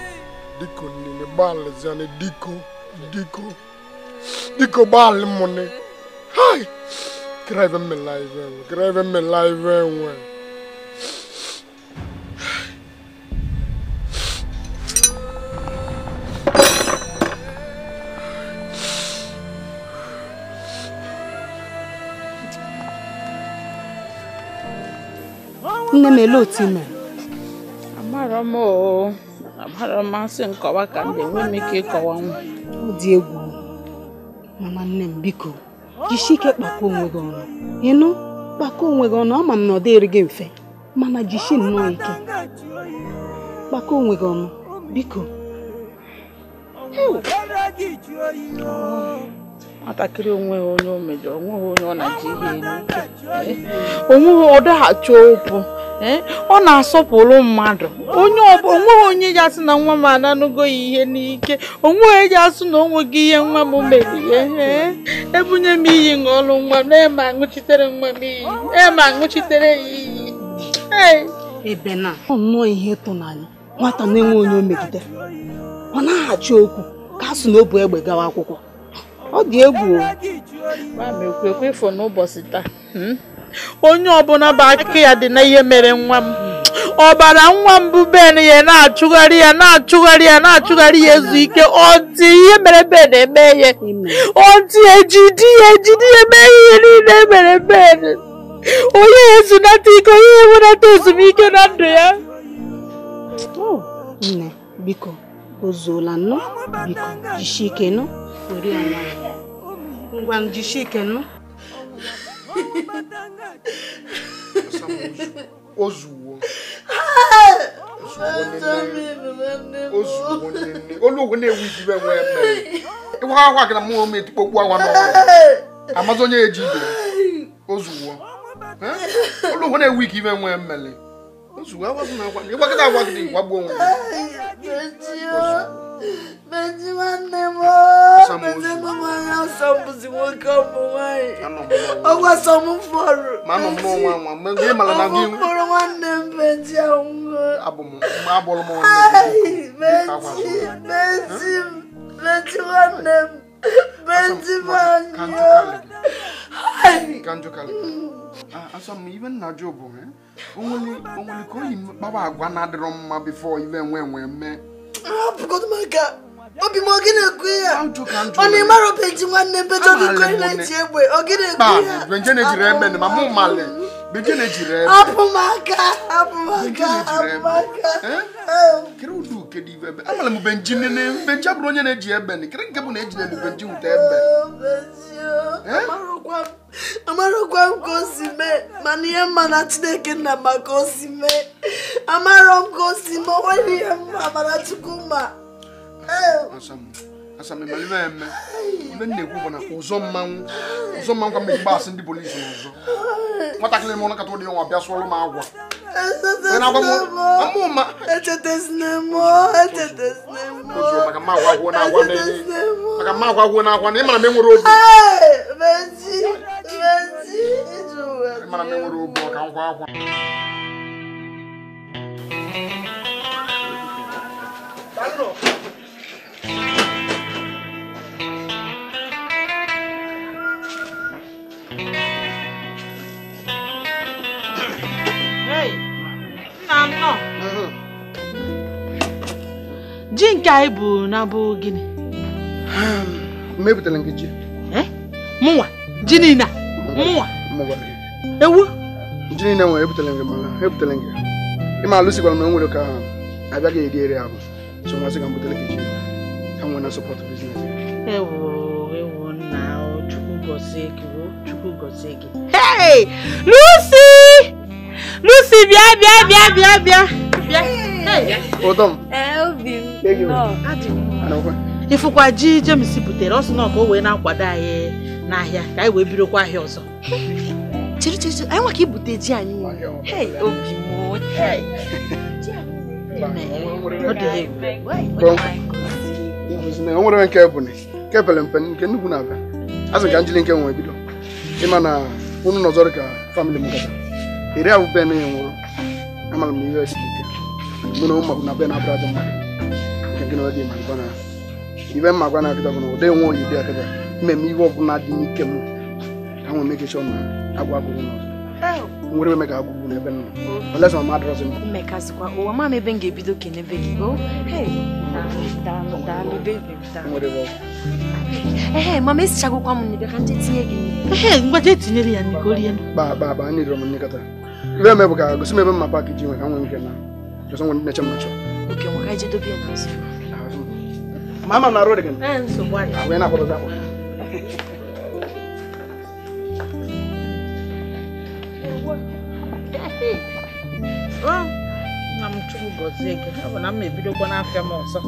ni diko nini bali zane diko diko diko bali money. Hi, kiraive me live, nwe me live. laive nwe. nne m elee otu ị mere? amarọ agbara mmasị nkọwa ka m ga-enwe m ike ịkọwa nwa ọ dị egwu mama nne m biko jisie ike kpakwa onwe gị ọnụ ịnụ kpakwa onwe gị ọnụ ama m na ọ dịrị gị mfe mana jisie nnọọ ike kpakwa onwe gị ọnụ biko nwatakịrị onweghị onye o mejọrọ onweghị onye ọ na-eji ihe ike onweghị ọ daghachi okwu Eh? ọ na-asọpụrụ mmadụ onye onweghị onye ya sị na nwa m ananụgo ihe n'ike onweghị ya sị na o nweghị ihe nwa m mere eh? ihe ebunye m iyi ṅụọlụ nwa m ema eh, aṅụchitere nwa m iyi ema aṅụchitere ya iyi ebe na ọ nnọọ ihe tụnanya nwata na-enwe onye o megide ọ na-aghachi okwu ka a sị na o bu egbe gawa akwụkwọ ọ dị egwu o ekwe ekwe n'ụbọchị taa hmm? onye ọbụla bụ aka ya dị na ihe mere nwa m ọbara nwa m bụ ben ya na-achụgharị ya na-achụgharị ya na-achụgharị ya ezu ike ọ dị ihe mere ben eme ya ọ dị ejidi ya ejidi ya mee ihe niile mere ben onye ezunata ike onye enwenata ezumike na ndụ ya nne biko ozuola nnu biko jisie ike nụ ngwa jisie ike nụ ozuwo ozuwo nne olugwu na-ewu ijibe nwe mmere ịwa akwa gị na m etikpo okwu awa n'ọnwa amazi onye eji ibe ozuwo olugwu na-ewu ike ibe nwe mmere ozuwo agwazi na agwa ịgwagịta gwagbuo Beji nwanne m Beji m nwaanyị asọ bụzi nwoke nwaanyị ọgwa sọ m fọrọ Beji anwụọ Beji Beji Beji nwanne m Beji m anyụọ asọ m ibe nna Job onwere ka oyi kpawa agwa na-adịrọ mma bifo ibe nwe nwe mee Rob, quando m a n c a obi m oge na-ekwu ya ọ na ịmara obeji nwanne bejo biko ị na-eji egbe oge na-ekwu ya apụ m aka apụ m aka apụ m aka amara m benji nene benji abụrụ onye na-eji egbe kere nke bụ na e ejide m benji wute egbe amarọkwa m ka o si mee mana ihe mma na chineke nna maka o si mee amarọ m ka o si mee onwere ihe mma mana chukwu mma asamemalibe eme ibe bụ na ụzọ mmanwụ ụzọ mmanwụ ndị polisi n'ụzọ ụdị agwa agwa obi akwa Mm-hmm. ji nke anyị bụ na bụ gịnị mepụtara nke ji mụnwa ji niile mụnwa ewu ji niile nwere ebutela gị mana ebutela gị ịma alụsikwara m nwere ka abịaghị eri eri ahụ so masị ka m butere nke ji ka nwere na sọpọtụ biznes ewo ewo nna chukwu gọzie gị chukwu gọzie hey lucy lucy bịa bịa bịa bịa bịa bịa ụdọ m obi m ịfụkwa ji jemes butere ọ sị na ọ ka o wee na-akwado anyị n'ahịa ka anyị wee birokwa ahịa ọzọ chiri chiri chiri anyị nwa ka ibute ji anyị obi m ọ dị egwu o nwere nke bụ nke pere mpe nke nnukwu na-abịa azụ ka njili nke nwere bido ịma na unu nọzọrọ ka famịlị m gata iri abụ be nwụrụ amara m ihe ike mụ na ụmụ na be na-abụrụ adị mma nke gị na ma gwa na ibe mma gwa na akịta na nwe oyi dị akịta mmemme ihe ọ dị n'ike m ka nwee nwere eme ga-agbụ n'ebe nna unless my mother doesn't know. Mmekazikwa ụwa oh, ma m ebe m ga-ebido kenebe gị o oh, daalụ mama esichagokwa m nnibe ka ndị tinye gị ehe ya m nnikọta ibe bụ ka gosi m ebe mma paakị ji nwe ka nwee nke na m oke nwa ka ya m na arụ dị gị na akpọ ọ na m chukwu gọzie gị ọ bụ na m ebidokwa n'afịa m ọzọ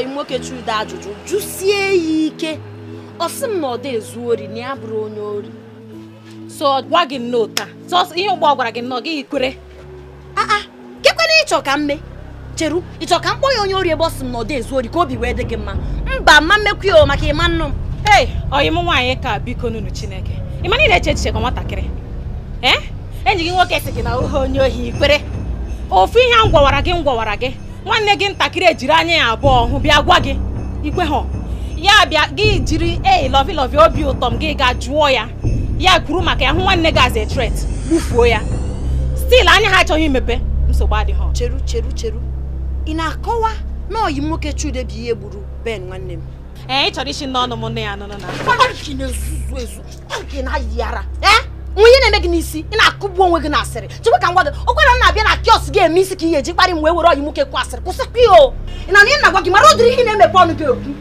ị nwoke chude ajụjụ jụsie ya ike ọ sị m na ọ dị ezu ori na ya bụrụ onye ori so gwa gị nnọọ taa sọsọ ihe ụgbọ gwara gị nnọọ gị kwere aa ah, ah, kekwana ịchọ ka mme cheru ịchọ ka m ya onye ori ebe ọ sị m na ọ dị ezu ori ka obi wee dị gị mma mba ma mmekwu maka ịma nnu m ee ọyị m nwaanyị ka biko nunu chineke ị na ị na-eche echiche ka nwatakịrị eh? enyi gị nwoke sị gị na ohe onye ohi ikwere ofu ihe m gwawara gị m gwawara gị nwanne gị ntakịrị ejiri anya ya abụọ hụ bịa gwa gị ikwe ha ya bịa gị jiri ei lọvi lọvi obi ụtọ m gị ga jụọ ya ya kwuru maka ya hụ nwanne gị as a threat gbufuo ya stil anya ha achọghị imepe nsogbu adịghị cheru cheru cheru ị na-akọwa na oyi nwoke chude bụ ihe gburu ben nwanne m ee ị chọrọ isi n'ọnụ m nne ya nụnụ na onye na-eme gị n'isi ị na-akụgbu onwe gị na asịrị chekwa ka ngwa gị okwere na-abịa na kiọs gị eme isi ka ị ga-eji kparị m wee were ọyị nwoke kwụ asịrị kwụsịkwa ya o ị na ihe na-agwa gị mara ụdịrị ihe na-emepe ọnụ gị okwu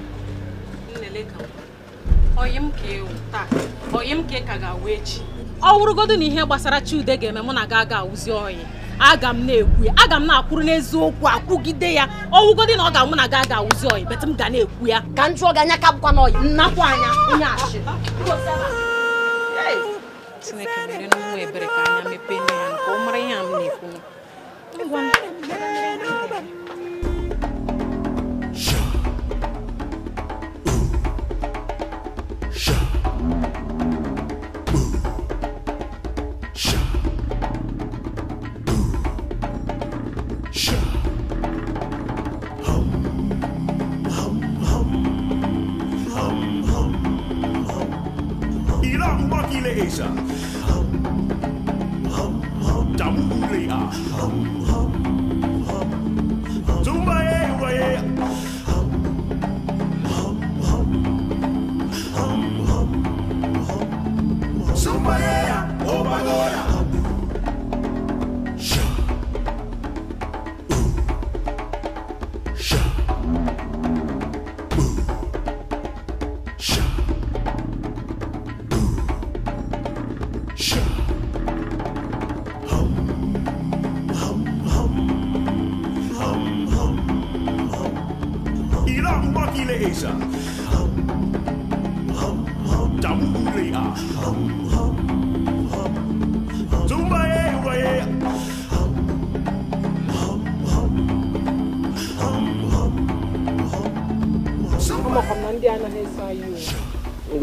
na ihe gbasara Chiude ga-eme mụ na gị aga awụzi ọyị aga m na-ekwu ya aga m na-akwụrụ n'eziokwu akwụgide ya ọwụgodi na ọ ga mụ na gị aga awụzi ọyị bet m ga na-ekwu ya ka m gị anya ka bụkwa anya onye achị Tuwekimele nungwe breka nyame pene yanko. Umre yamne Tambaki leisa. Hum, hum, Hum, hum.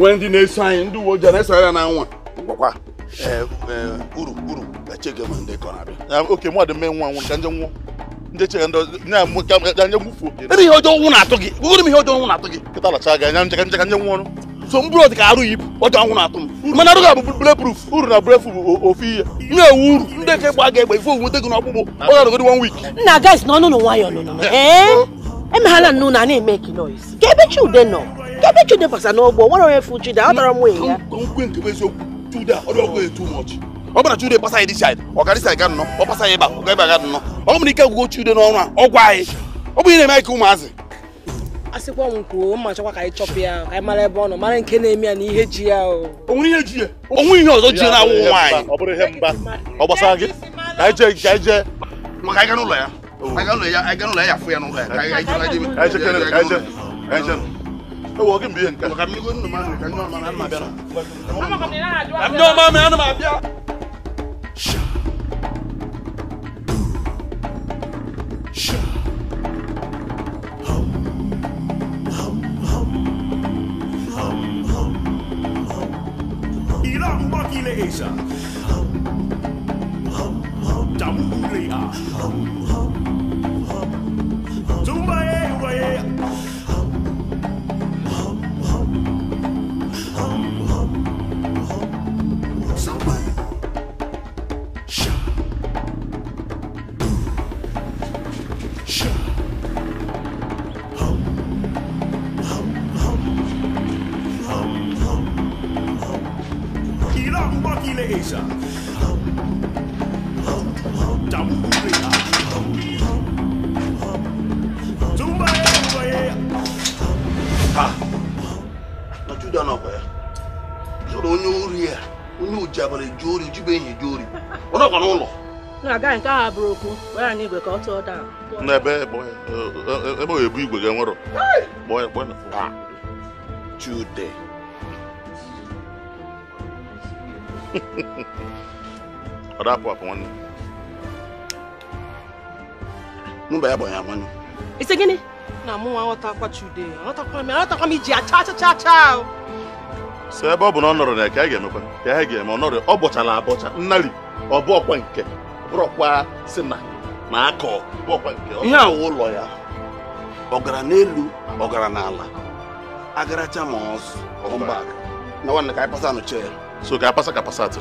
onwe ndị na-eso anyị ndị uwe ojii na-eso ya na gwakwa e, e, uru uru echege ndị abịa oke mmadụ mee nwa nwụrụ ka nje nwụọ ndị chege ndị anya gwufuo ebe ihe ọjọọ nwụ na-atụ gị gụgụrụ m ihe ọjọọ nwụ na-atụ gị kịta lacha gị anya nje nwụọ so ka arụ yipụ ọjọọ nwụ na-atụ m mana arụ ga na bulletproof bụ ofu ihe na-ewu uru ndị nke gba ga-egbe ife gị n'ọkpụkpụ ọ ga na nwayọ nnu na eme ekele ka ebe chi ude nọ ebe chude basa n'ọgbọ nwere onye fụ chude atara m nwunye ya nkwe nke bụ eziokwu chude a ọrụ ọgụ etu mọchi ọ bụna chude gbasa ya disaid ọgarịsa ya nnọ ọ gbasa ya ịba ọ gaghị aga nnọ ọ nwere ike gwụgo chude n'ọrụ a ọ gwa anyị ọ bụ ihe na-eme ka ụmụazị asịkwa m kwuo mma chọkwa ka anyị chọpụ ya ka anyị mara ebe ọ nọ mara nke na-eme ya na ihe ji ya o onwere ihe ji ya onwe ihe ọzọ ji ya na-awụ nwaanyị ọ bụrụ ihe mba ọ gbasara gị ka anyị jee ka anyị jee maka anyị ga n'ụlọ ya anyị ga n'ụlọ ya anyị ga n'ụlọ ya ya fụ ya n'ụlọ ya ka anyị jee wọ́ọ̀kì mbí yẹn kẹ́. ọ̀kà mi kò nù mà nìkan ní ọ̀ma ní ma bẹ́ẹ̀ nà. àmì ọ̀ma mi àná ma bíà. Asia. Jamhuriya. Tumbaye waye. Caesar. Damburia. Tumbaye, na kwa ya. Soro ya. Onye uji abalị jori, uji bụ enyi Na-aga nke a bụrụ okwu, were anyị igwe ka ọ tụọ daa. N'ebe ebe ọ ebu igwe ga ọ dapụ apụ nwanne ya gbanye amanụ ise gịnị na mụ nwa aghọtakwa chude aghọtakwa m aghọtakwa m iji acha acha so ebe ọ bụ na ọ nọrọ na ka ga ya ga-eme ọ nọrọ ọ bọchala abọcha nnari ọ nke bụrọkwa si na na nke ụlọ ya ọ gara n'elu ọ n'ala na ka pasa so ka apasa ka pasatụ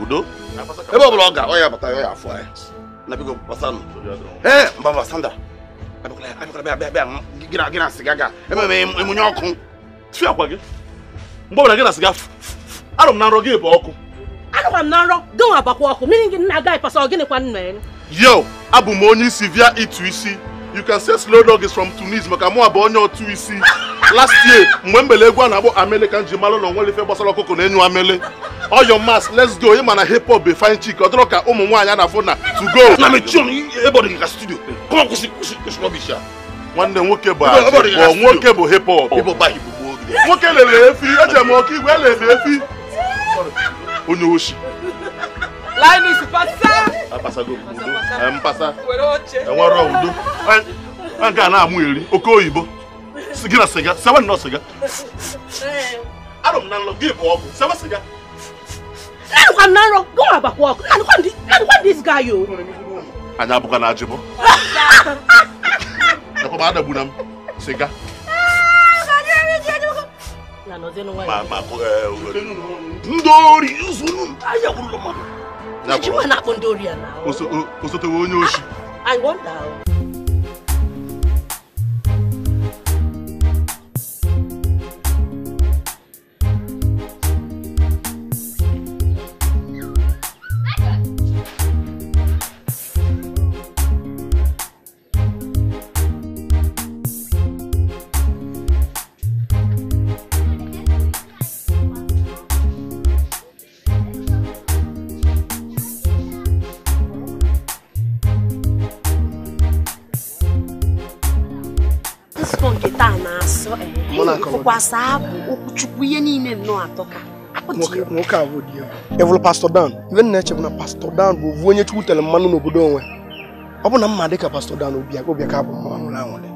udo ebe ọ bụla ọ ga ya bata ya afọ eh. na biko basanụ ee eh, mba basanda gị na sịga ememe emunye ọkụ tụọ gị mgbe gị na sịga na nrọ gị bụ ọkụ agara na nrọ gị na kwa yo abụ m onye isi via ịtụ isi you can say slow dog is from Tunis maka mụ bụ onye otu isi last year mgbe mbele egwu na-akpọ amele kan nji mara gbasara ọkụkọ na-enyu amele ọyọ mas let's go ịma na hip hop be fine chick ọ ka ụmụ nwaanyị na-afụ to go nwanne nwoke nwoke bụ efi eji igwe e efi onye Linus, pasa. Apasago udo. a pasa. Were oche. Enwere udo. An na amu eri oke oyibo. Sigira siga, sewa no Eh. na lo give up. Sewa na ro, go abakwa ọkụ. Na kwa ndi, na kwa this guy Anyị abụkwa na ajịbọ. Ekwa ba adagbuna m. Siga. Eh, Ndị ori m Nnechi ah, I wonder. tụkwasị abụ okwuchukwu ihe niile nnọọ atọ ka nwoke a bụ di ya evụlụ pastọ dan ibe nna na pastọ dan bụ ovu onye chukwu tere mmanụ n'obodo onwe ọ bụ na mma dị ka pastọ dan obi ka bụ mma nwụrụ anwụrụ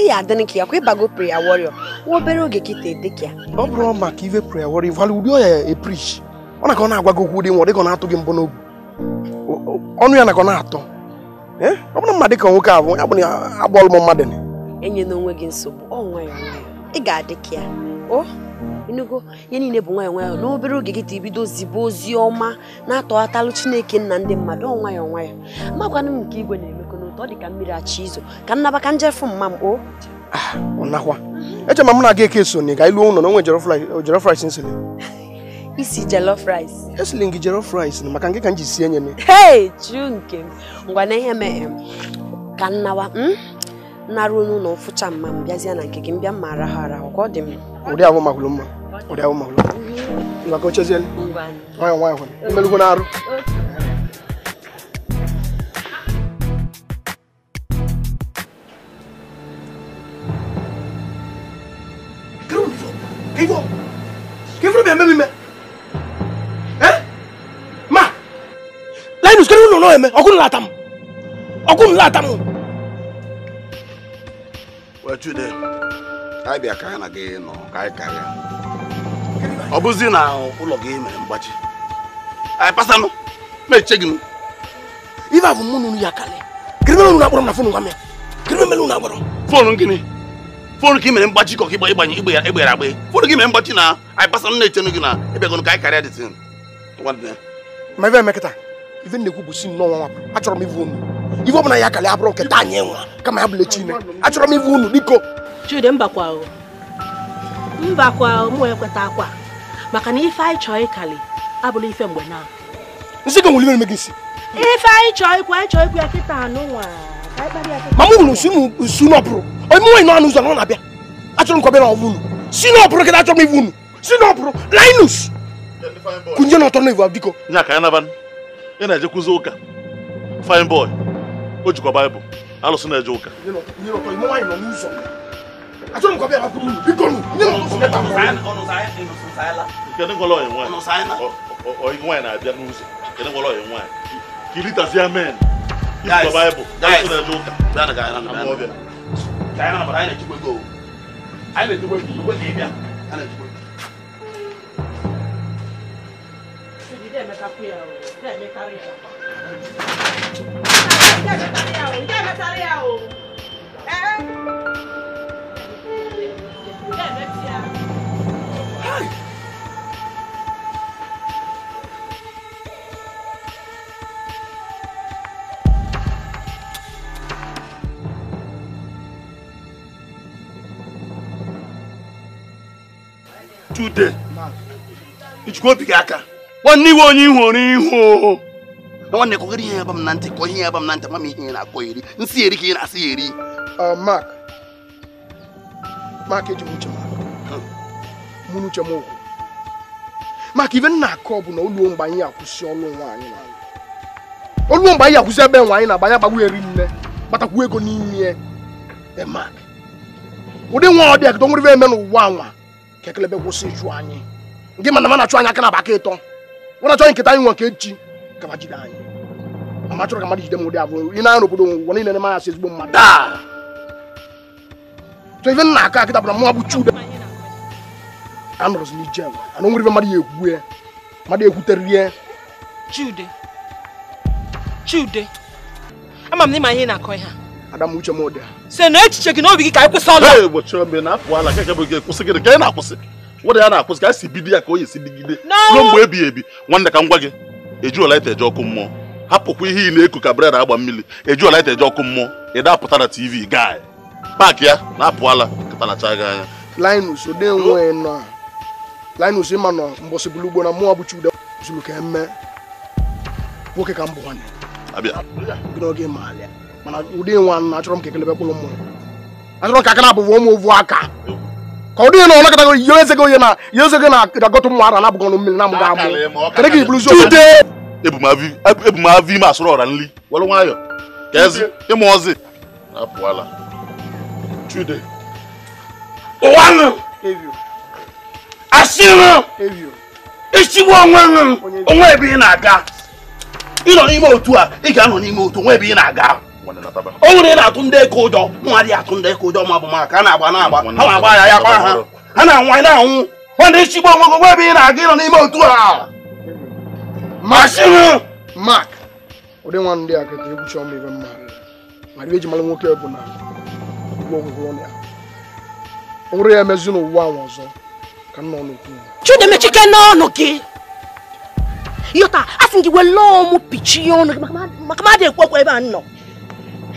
ihe adịnị ka ya kwa ịbago prayer warrior nwa obere oge ọ bụrụ maka ive prayer warrior ụdị ọya ọ na agwa gị okwu dị nwa ọ dịka na-atụ gị ka ọ na-atọ ọ bụrụ na agbọọlụ m gị nsogbu ị ga-adị ka ya o enugo ihe niile bụ nwayọọ nwayọọ n'obere oge gị ta ibido zibe ozi ọma na-atọghatalụ chineke nna ndị mmadụ ọ nwayọọ nwayọọ magwanụ m nke igwe na-emekọ n'ụtọ ọ dị ka mmiri achị izo ka nnabaka njefu mma m o ah, nakwa eche ma m na-aga eke so na ị ga ilu ụlọ na onwe jollof rice nsịrị isi jollof rice esiri gị jollof rice na maka nke ka m ji sie nye m hei juu nke m ngwa na ihe mee ka nnawa n'arụ n'ụlọ mfụcha mma m bịazie na nke gị mbịa mma araha arahụ ka ọ dị m ụdị ahụ mahụrụ mma ụdị ahụ mahụrụ mma ka ochezielu nwayọ nwayọ hụrụ imelugwu na arụ ọkụ wechude anyị bịa ka anyị na gị nọ ka anyị karịa ọ bụzi na ụlọ gị mere mgbachi anyị pasanụ meche gị m ife mụ ya karịa kiri mere unu na fon nwa m ya kiri mere fon gịnị fon ka i mere mgbachi ịgbanye igbe egbere agbe fon gị mere mgbachi na anyị pasanụ na-echenụ gị na ịbịagọnụ ka anyị karịa dị ma ebe ife na-ekwu bụ si nnọọ nwa achọrọ m ivu unu ọbụla ya kalị abụrụ nke taa anyị nwa kama ya bụla chine achọrọ m ivu unu biko chude mbakwa mbakwa m akwa maka na ife anyị chọọ ịkali abụla ife mgbe na nsị ife anyị chọọ anyị chọọ ya kịta anụ nwa ma m n'ọpụrụ onye nọ n'ụzọ na ọ na-abịa achọrọ m ka ọ si n'ọpụrụ kịta achọrọ m ivu unu si n'ọpụrụ ị na-eje kụzi ụka fine boy o jikwa baịbụl alụsị na-eje ụka kedụ ngwọrọ onye nwaanyị na-abịa n'ụzọ kedụ ngwọrọ onye nwaanyị ka ilitazi amen ijikwa baịbụl alụsị na-eje ụka anyị na-echekwa ego anyị na-echekwa ego ị bịa ìdí ẹ̀mẹ́ta pé ẹ̀ o ìdí ẹ̀mẹ́ta rí ẹ̀ o. ìdí ẹ̀mẹ́ta rí ẹ̀ today ichukwu obi gị aka nwanne iwe onye ihụrụ ihu nwanne kọgara ihe ya ba m na ntị kọ ihe ya ba m na ntị ma ihe ị na-akọ eri nsi eri ka ị na-asị ya eri Mark Mark eji m uche hmm. mụ n'uche m okwu maka ibe nna akụ ọ bụ na oluo mgbe anyị akwụsị ọlụ nwaanyị anyị na oluo mgbe anyị akwụsị ebe nwaanyị na-agba ya gbagbu eri nne kpatakwu ego n'ime e, Mark ụdị nwa ọ dị akịtọ nwere eme e n'ụwa anwa ka ekelebe kwụsị ịchụ anyị gị mana m na-achụ anyị aka na aba aka ịtọ na chọrọ nketa anyị nwa nke echi gaba jide anyị ama chọrọ ka mmadụ jide m ụdị abụọ ị na-arụ obodo ụwa niile na manya si ezigbo mmadụ a so ife nna aka akịta bụ chude anọrọzi n'ije ana ife mmadụ ya egwue mmadụ egwuterie chude chude ama m n'ịma ihe na-akọ ihe ada m uche m ụdị na echiche gị n'obi gị ka anyị kwụsị na-akwụsị nwere ya na-akwụsị ka si bido ya ka o yesi digide ruo mgbe ebighị ebi nwanne ka m gwa gị ejuolaita eji ọkụ mmụọ hapụkwa ihe ị na-eku ka breda agba mmiri ejuolaita eji ọkụ mmụọ ị dapụta na tv gaa paakị ya na-apụala katalacha anya na mmụọ ka nwoke ka m bụ nwanne mana ụdị nwa achọrọ m ka ekelebe kpụrụ mmụọ achọrọ ka aka na ụmụ ovu aka ka ọ dịghị na ọ nakọtago ihe ezego ihe na ihe ezego na agọtụ ụmụ ara nabụgọ ọnụ mmiri na mụ ga-amụ kedụ ka ibulu ziokwu ebumavi ime asụrụ ọra nri were nwayọ ka ezi ịmụ ọzị chude onwe nụ onwe ebe ị na-aga ịnọ n'ime otu a ị ga-anọ n'ime otu onwe ebe ị na-aga o nwere na-atụ ndị eke ụjọ nwa atụ ndị eke ụjọ ma maka a na-agba na-agba ha na-agba ya ya kwa ha ha na-anwụ anyị na-anwụ nwanne chigbo onwego nwa ebe ị na-aga ịnọ n'ime otu a mashin mak ụdị nwa ndị a ka egwu chọọ ibe mma mara eji mara nwoke bụ na o nwere ya emezi n'ụwa ahụ ọzọ ka nna ọnụ chidemechike n'ọnụ gị asị gị ọnụ gị maka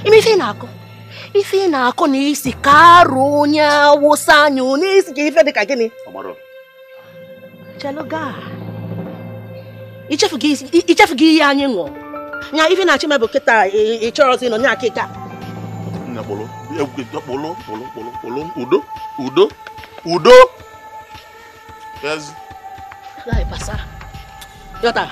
imefena akọ ife na-akọ na isi ka arụ onye awụsa anya onye isi ka ife dị ka gịnị cheloga ichefugo ihe anyị ṅụọ nya ife na-achị mebụ kịta ịchọrọzi nọ nya akịka udo udo udo yọta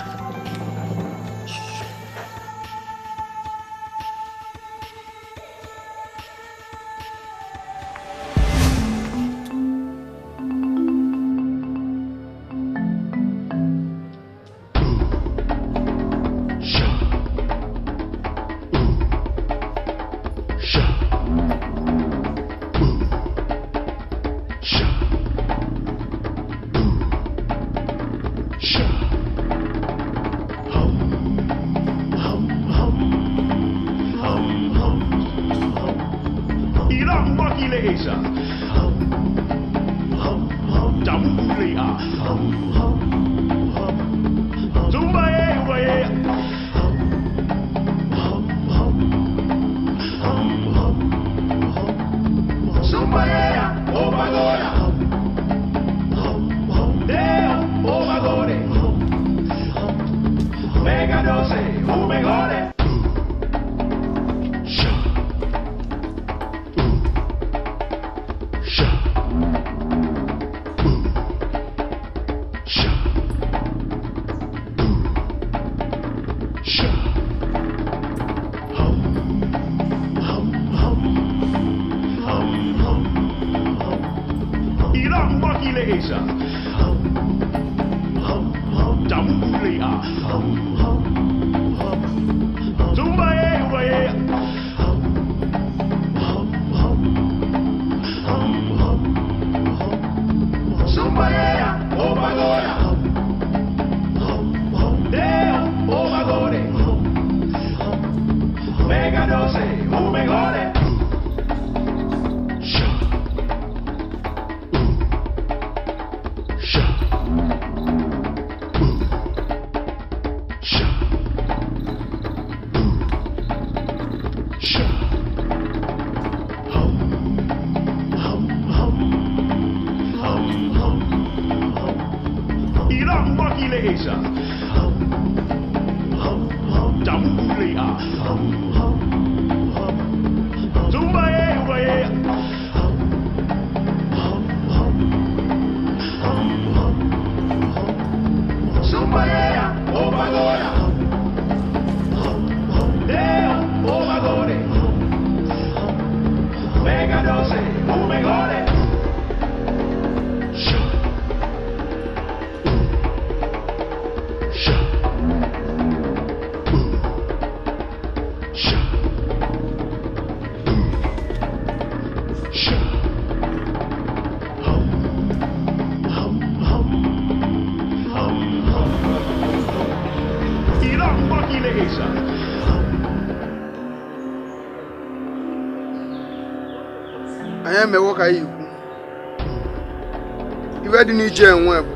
na iji enwe bụ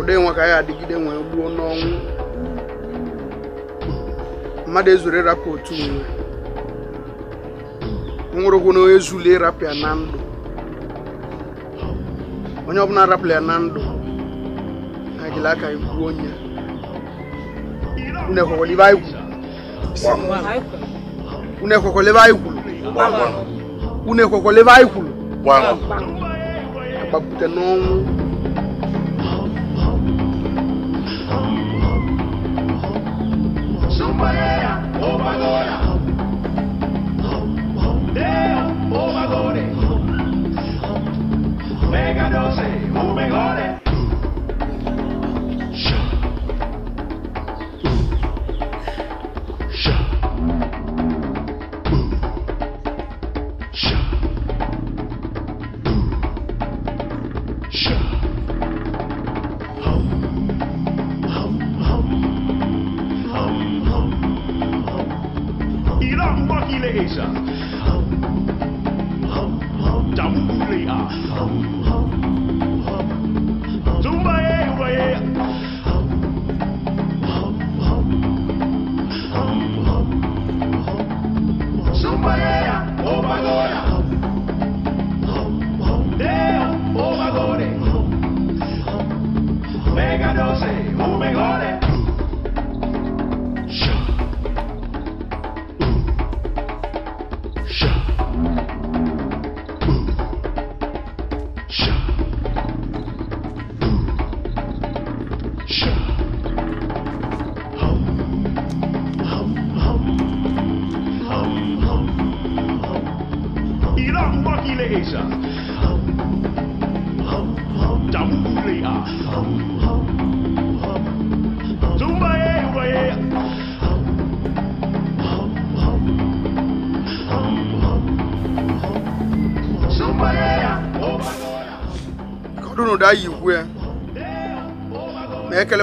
ụdị nwa ka anyị adịgide nwee gbuo n'ọnwụ mmadụ ezuru rapịa otu nwe nwụrụgwụ na ezuli ịrapụ ya na ndụ onye ọbụla rapịa na ndụ na agịla aka gbuo onye unu ekwekwele ibe anyị kwuru unu ekwekwele ibe anyị kwuru bakute n'ọnwụ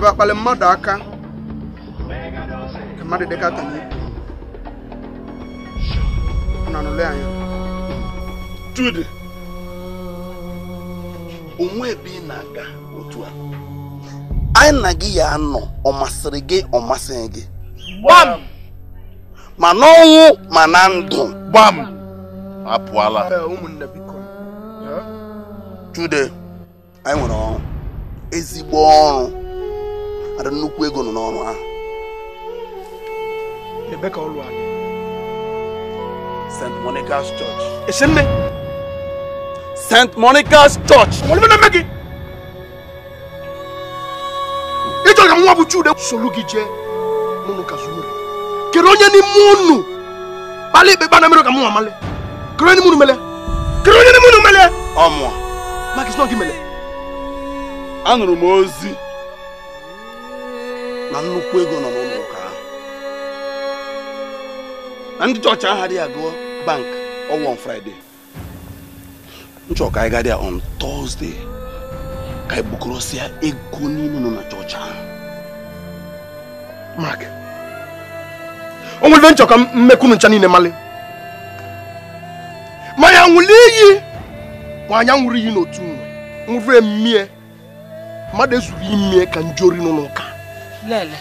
ga akpali mmadụ aka ka mmadụ dịka tanye na nụlụ anya Jude onwe ebe ị na-aga otu a anyị na gị ya nọ ọ masịrị gị ọ masịghị gị gbam ma n'ọnwụ ma na ndụ gbam apụọla ụmụnne Jude anyị nwere ọrụ ezigbo ọrụ nwere nnukwu ego nọ n'ọrụ ahụ St. Monica's Church St. Monica's Church ịchọrọ ka nwa bụ Chude soro gị jee n'ụlọ kere onye n'ime unu kpalị ikpe kpa na mere ka male kere onye n'ime mele kere onye n'ime unu mele gị anụrụ m ozi na nnukwu ego nọ n'ụlọ ụka ahụ na ndị chọọchị ahụ adịghị agụ bank ọwụwa on nchọka ka anyị gadị ya on Thursday ka anyị bukọrọsịa ego niile nọ na chọọchị ahụ o nwere ka niile mali ma ya nwụrụ ma anya nwụrụ iyi n'otu nwe nwụrụ emie mmadụ imie ka n'ụlọ ụka lele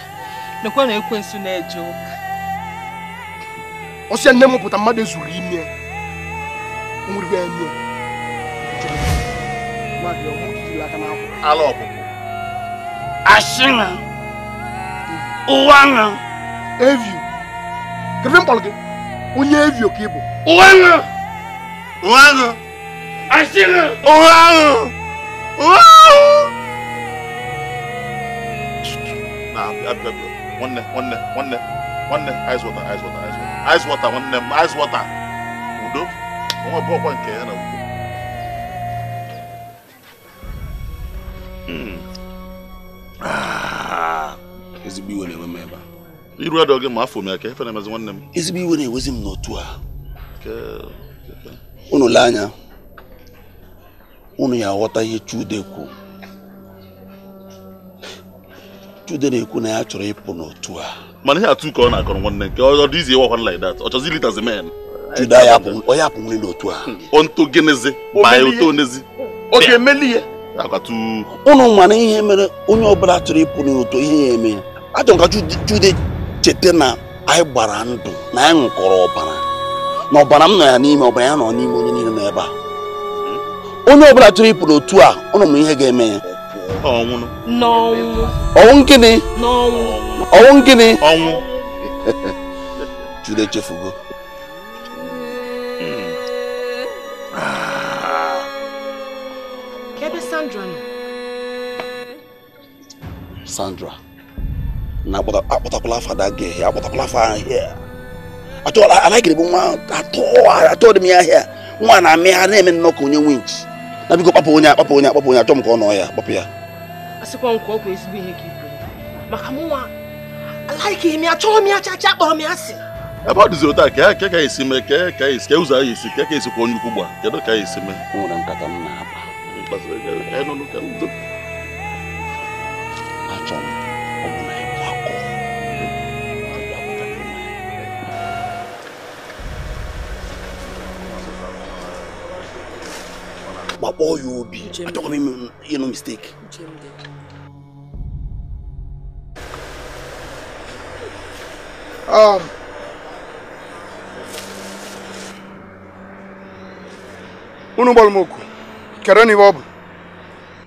lekwa na ekwensu na-eje ụka ọsịa nne m pụta mmadụ ezuru ime nwere eme ala ọpụpụ asị na ụwa na evio kedu mkpọrọ gị onye evio ka ị bụ ụwa na ụwa na asị na ụwa na ụwa na nwanne nwanne nwanne nwanne ice water ice water ice water nwanne m ice water udo onwe bụ ọkwa nke ya na udo ezigbo iwe na-enwe m ebe iru adọ gị ma afọ m ya ka efe na-emezi nwanne m ezigbo iwe na-ewezi m n'otu a unu lee anya unu ya aghọta ihe Chude kwuru Chude na-ekwu na ya chọrọ ịpụ n'otu a mana ihe atụ nke ọ na-akọrọ nwanne nke ọ dị izi ịwakwana like that ọ chọzi lead as a man Chude onye apụnwere n'otu a onto genezi ma ya oto onezi ọ ga-emeli ihe ụnụ mana ihe mere onye ọbụla chọrọ ịpụ n'otu ihe ya eme ya achọrọ ka Chude cheta na anyị gbara ndụ na anyị ṅụkọrọ ọbara na ọbara m nọ ya n'ime ọbara ya nọ n'ime onye niile nọ ebe a hmm? onye ọbụla chọrọ ịpụ n'otu a ụnụ ma ihe ga-eme ya ọnwụ gịnị ọnwụ gịnị ọnwụ Jude echefugo hmm. Sandra na akpọtakwala afa da gị akpọtakwala afa ahịa anaghịrịbụ nwa atọ dị m ya ahịa nwa na-amị na-eme nnọọ onye winch na biko kpapụ onye akpapụ onye akpapụ onye achọ m ka nọ ya kpapụ ya asịkwa m ka ọ kwa ihe maka ebe ọ taa ka e, ka esi e mee ka e, ka esi ka ụzọ anyị ka ka esi kwa onye ukwu gba ka esi mee gbakpọọ ya obi achọkwa m ịnụ mistake um, unu gbọrọ m oku kere n'ihe ọ bụ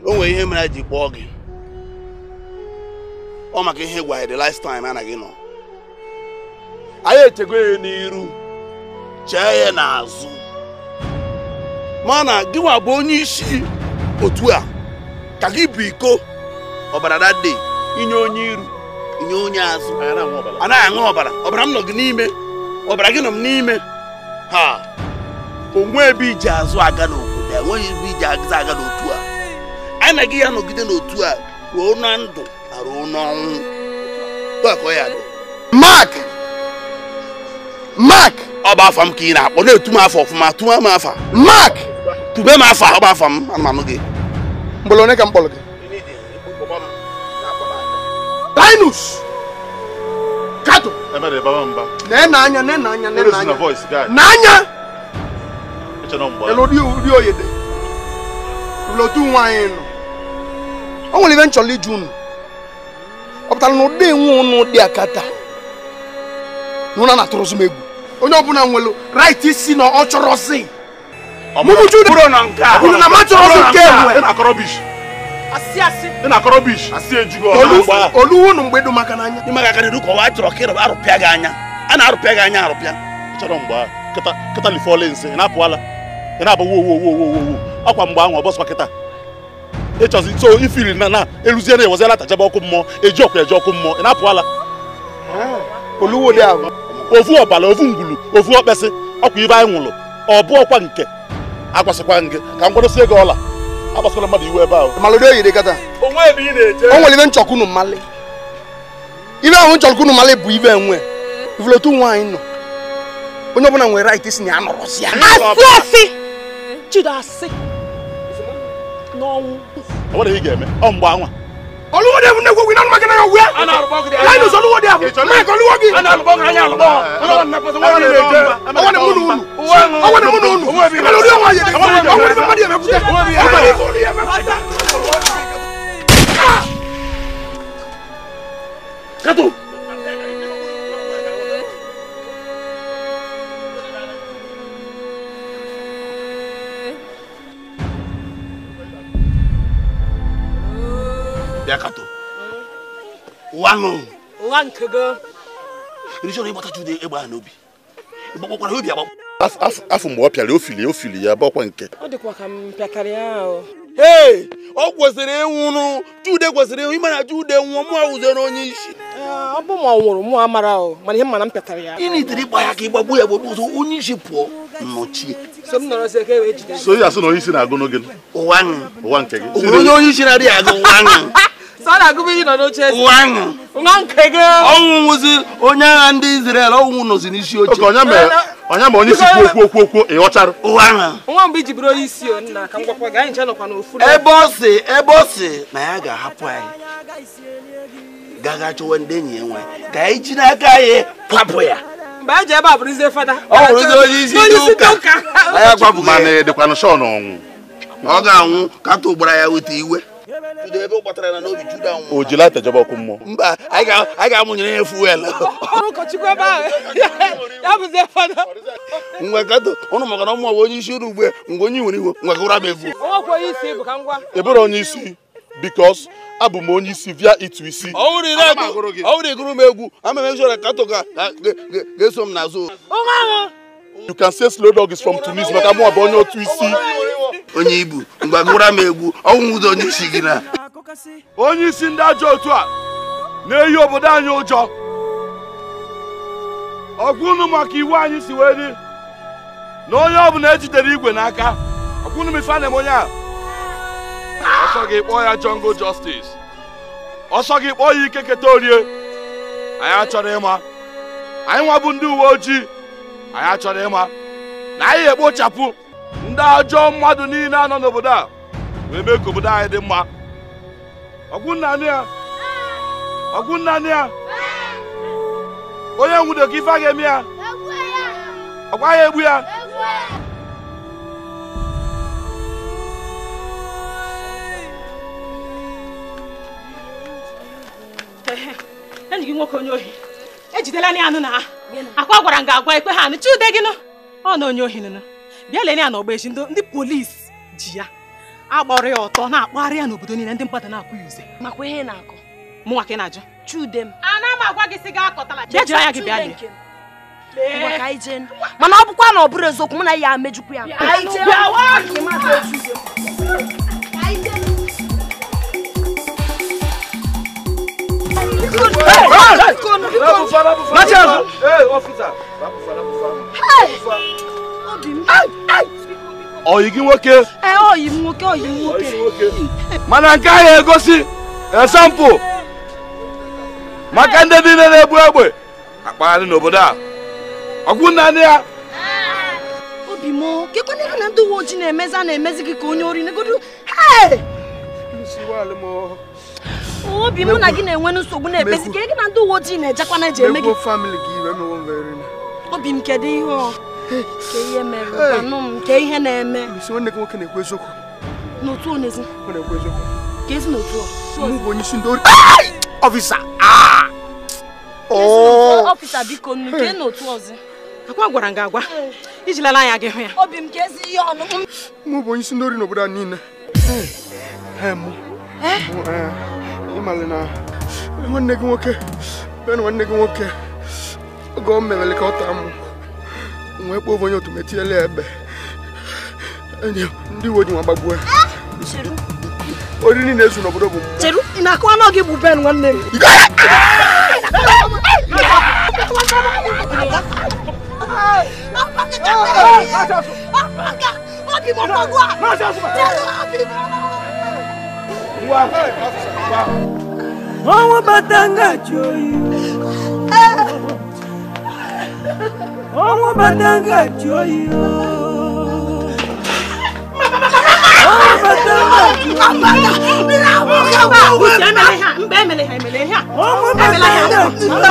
o nwere ihe mere ji kpọọ gị ọ maka ihe gwa the last time gị nọ anyị echego ya n'iru chee ya n'azụ ma na gịnwa bụ onye isi otu a ka gị bụ iko ọbara dade inye onye iru inye onye azụ anaghị aṅụ ọbara ọbara m nọ gị n'ime ọbara gị nọ m n'ime ha onwe ebe iji azụ aga n'obodo a e enweghị ebe iji azụ aga n'otu a anaghị ya nọgide n'otu a ruo na ndụ na ruo n'ọnwụ mak mak ọ bụ afọ m ka ị na-akpọ na-etu m afọ ọfụma tụwa m afa mak tube ma afọ ahụ m anụmanụ gị mgbọrọ onye ka m gị Linus kato na na anya na na anya na-ena anya n'anya ri oyede lotu nwaanyị nọ o nwere ibe m chọrọ iju unu ọ pụtara na ụdị nwe n'o dị akata na ụna na-atụrụzi m egwu onye ọbụla nwere right si na ọ chọrọ mụmụju bụrụ na nke a na matọrọ nke ị na-akọrọ bish asị asị ị na-akọrọ bish asị ejugo olu nu mgbe n'anya maka arụpịa gị anya a na-arụpịa gị anya arụpịa na ahụ so na na e ọkụ mmụọ e ọkụ mmụọ na ọbala ọkwa ibe nwụrụ nke agwasịkwa gị ka m kwadosie gị ọla agbasola mmadụ iwu ebe ahụ o nwere ibe nchọkụ unu mmalị ibe ahụ nchọkụ unu mmalị bụ ibe enwe ivulotu nwaanyị nọ onye ọbụla nwere right isi na ya nọrọsi ya asị chido asị n'ọnwụ o nwere ihe ị ga-eme ọ mgbe anwa oluwo de ne ko winan ma kana yo wiya ana arbo ko de la no so luwo de afu me ko luwo gi ana arbo ko anya arbo ona na pa so wona de ona na munu unu ona na munu unu ana luwo wa ye de ona na munu ma de me kute ona ni ko ni me kute kato bịa kato ụwa nụ ụwa nke gị ịrịchọrọ ịgbatacha ude egbe n'obi ịgbakpọkwara obi agbakpọ afọ mgbe ọ pịara ofili ofili ya bakwa nke ọ dịkwa ka m ya ahụ ee ọ kwesịrị ịnwụrụ jude kwesịrị ịnwụ na jude nwụọ mụ ụzere onye isi eh, ọ bụ ma ọ nwụrụ mụ amara ahụ mana ihe mana m pịatara ya ịgba ya ka ya gbagbu onye e ya na onye isi na-agụ n'oge ụwa nke gị onye so na-agụba ihe nọ n'oche nwa nke gị ọnwụ nwụzi onye agha ndị Izrel ọnwụ nọzi n'isi oche onye ma onye isi kwuo okwu okwu ịghọchara nwa mgbe iji bụrụ onye isi nna ka m ga anyị nche n'ofu ebe ọ si ebe ọ si na ya ga-ahapụ anyị gaga ndị enyi ya ka anyị n'aka anyị kwapụ ya mgbe anyị ji ebe a fada ọ onye ndị ụka anwụ kata ya iwe bido ebe ọ gbatara na n'obi juda nwụrụ o jila atajọba ọkụ mmụọ mba anyị ga-amụnyere ya fuel ngwakọtụ ụnụ maka na ụmụ onye isi ụrụ ugbu mgbe onye nwere iwe ngwakọ ụra bụ ebere onye isi bikos abụ m onye isi via itu isi ọwụrụ gụrụ m egwu ama m ga-eso m n'azụ you can say slow dog is from Tunis but mụ abụ onye otu isi onye ibu mgbe gụra egwu ọnwụ ụzọ onye isi gị na onye isi ndị ajọ otu a na-eyi obodo anyị ụjọ ọgwụ unu maka iwu anyị si wee dị na onye ọbụla ejidere igwe n'aka ọgwụ unu ife na onye a ọsọ gị kpọọ ya jungle justice ọsọ gị kpọọ ya ikeketa orie anyị achọrọ ịma anyị nwa bụ ndị uwe ojii anyị achọrọ ịma na anyị ekpochapụ ndị ajọ mmadụ niile anọ n'obodo a wee mee ka obodo anyị dị mma ọgwụnnanị ya onye ya onye ife a ga-eme ya ọkwa ya egbu ya enyi gị nwoke onye ohi ejidela na anụ na akwa gwara m ga agwa ikpe ha anụ chude gịnụ ọ na onye ohi nụnụ bịa lere ya na ọgba echi ndị polisi ji ya agbọrọ ya ọtọ na-akpagharị ya n'obodo niile ndị mmadụ na-akụ ya uze makwa ihe na-akọ mụnwa ka ị na-ajụ chude m ana m agwa gị si gị akọtala bịa jiri anya gị bịa lie mana ọ bụkwa na ọ bụrụ eziokwu mụ na ya mejukwu ya ọyigi nwoke ọyi nwoke ọyi nwoke mana nke ahụ egosi esampụ maka ndị niile na-egbu egbe akpagharị n'obodo a ọgwụ nna ndị ya obi m kekwana ife na ndị uwe ojii na-emezi a na-emezi gị ka onye ori negodu obi m na gị na-enwe nsogbu na-ekpezi ka gị na ndị uwe ojii na-ejekwa na eji eme gị obi m kedu ihe ke ihe mere anụ m ke ihe na-eme n'otu onezi ka ezi n'otu ọfisa ah! ọfisa oh! biko nnu ke n'otu ọzọ akwa gwara nga agwa iji lele anya gị hụ ya obi m ka ezi ihe ọnụ mụ bụ onye isi ndị ori n'obodo a niile eh? Eh. ịmalị na nwanne gị nwoke be na nwanne gị nwoke oge ọ mewele ka ọ taa mụ wee kpọọ onye otu metiele ya ndị uwe ji nwa gbagbuo ya oriri niile ezu n'obodo bụ mmụọ na akụ anọ gị bụ ben nwanne m Owo batanga joyi. Owo batanga joyi. Owo batanga joyi. Mira wo ya wo. Mbemele ha, mbemele ha, mbemele ha. Owo batanga joyi.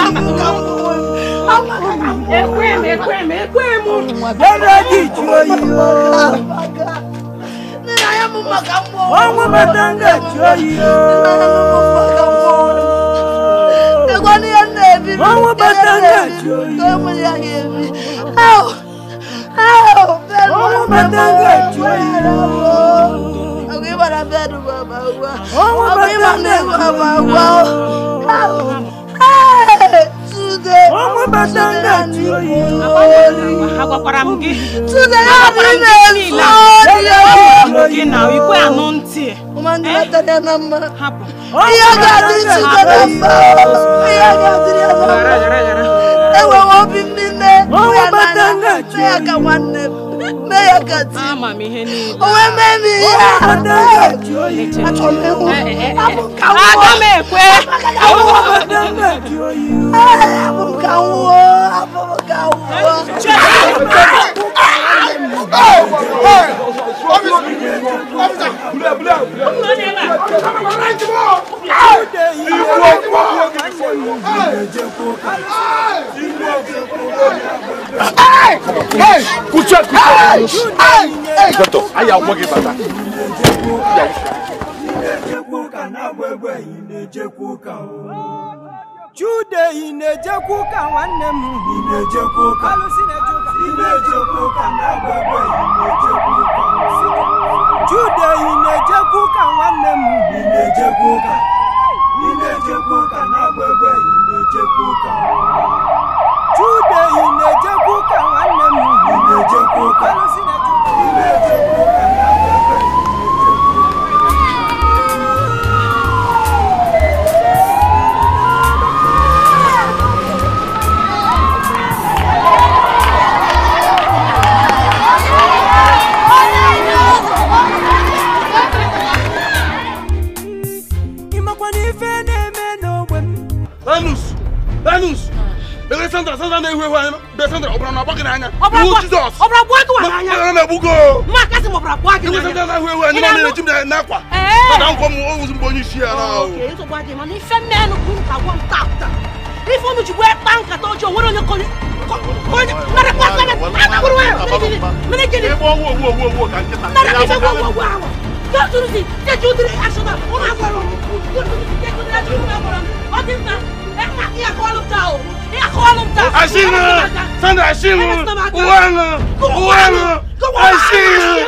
Ekwem, ekwem, ekwem. Owo batanga joyi ọmọ matanga choyi ọmọ matanga choyi ọmọ matanga choyi ọmọ matanga choyi ọmọ bàtà ń gà tí ó yí orí. agwakwara m gị tude ya dị na-ezu orí ọmọ gị na ikwe anụ ntị hapụ ihe ga-adị tude na mba ihe ga-adị ya na mba ya ka nwanne m meya kati owe memi amukanwo amukanwo amukanwo. Dọ́tọ̀, ayé àwọn ọmọge bàbá. Chude ị na-ejekwu ka nwanne m. Ị na-ejekwu ka. Alụsị na-eju Jude ị na-ejekwa ụka nwanne m ị na-ejekwa ụka na-agba egbe Nínú sọ́jà náà wíwú ẹni náà nínú jimina ẹ̀ná kwa. Sọ́jà ń kọ́ mu ó wùsùn o. Kèé tó bá dé ma ní fẹ́ mẹ́nu kún ká wọ́n ta ta. Ní fóònù jù wẹ́ pa nkàtà ojú òwúrò yẹn kọ́ni. Kọ́ni mẹ́rẹ̀ pa sẹ́lẹ̀ àtàkùrù wẹ̀ mẹ́rẹ̀ jẹ́ni. Ẹ bọ́ wò wò wò wò kà ń kẹta. Mẹ́rẹ̀ kí fẹ́ wò wò wò àwọ̀. Dọ́tun si jẹ́jú diri aṣọ náà ó máa gbọ́rọ̀. Dọ́tun si Sandra àṣìlù. Uwẹ́nu Uwẹ́nu àṣìlù.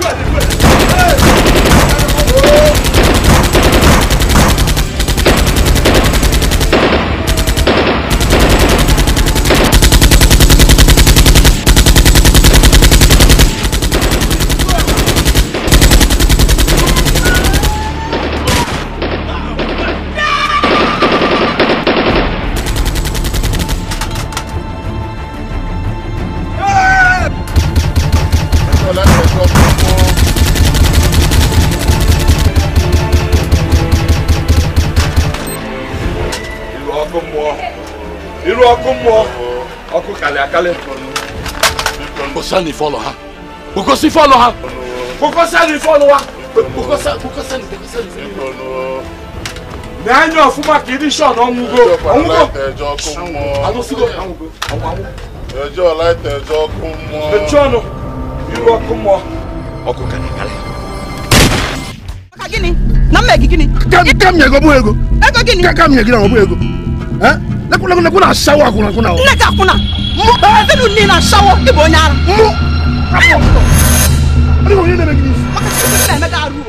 Good. Good. Ọ̀nì àkálẹ̀. Kò sẹ́ni fọ́lọ̀ ha. Kò sí fọ́lọ̀ ha. Kò sẹ́ni fọ́lọ̀ wa. Kò sẹ́ni fọ́lọ̀. N'anya ọ̀fúnma kì í ní sọ̀nà ọ̀mùgọ̀. Ọ̀mùgọ̀. Ẹjọ́ kún mọ́. Àwọn sígọ̀ ọ̀mùgọ̀. Ẹjọ́ láìtẹ̀ ẹjọ́ kún mọ́. Ẹjọ́ nù. Irú ọkún mọ́. Ọkụ ka na-akalị. Maka gịnị? Na mma gị gịnị? Ka m nye ego bụ ego. Ego gịnị? Ka m nye gị na ọ bụ ego. Lekwula lekwula na-asawa akwụna akwụna. Nne gị akwụna mu bɛɛfinu ni na sawo i b'o ɲa la mu.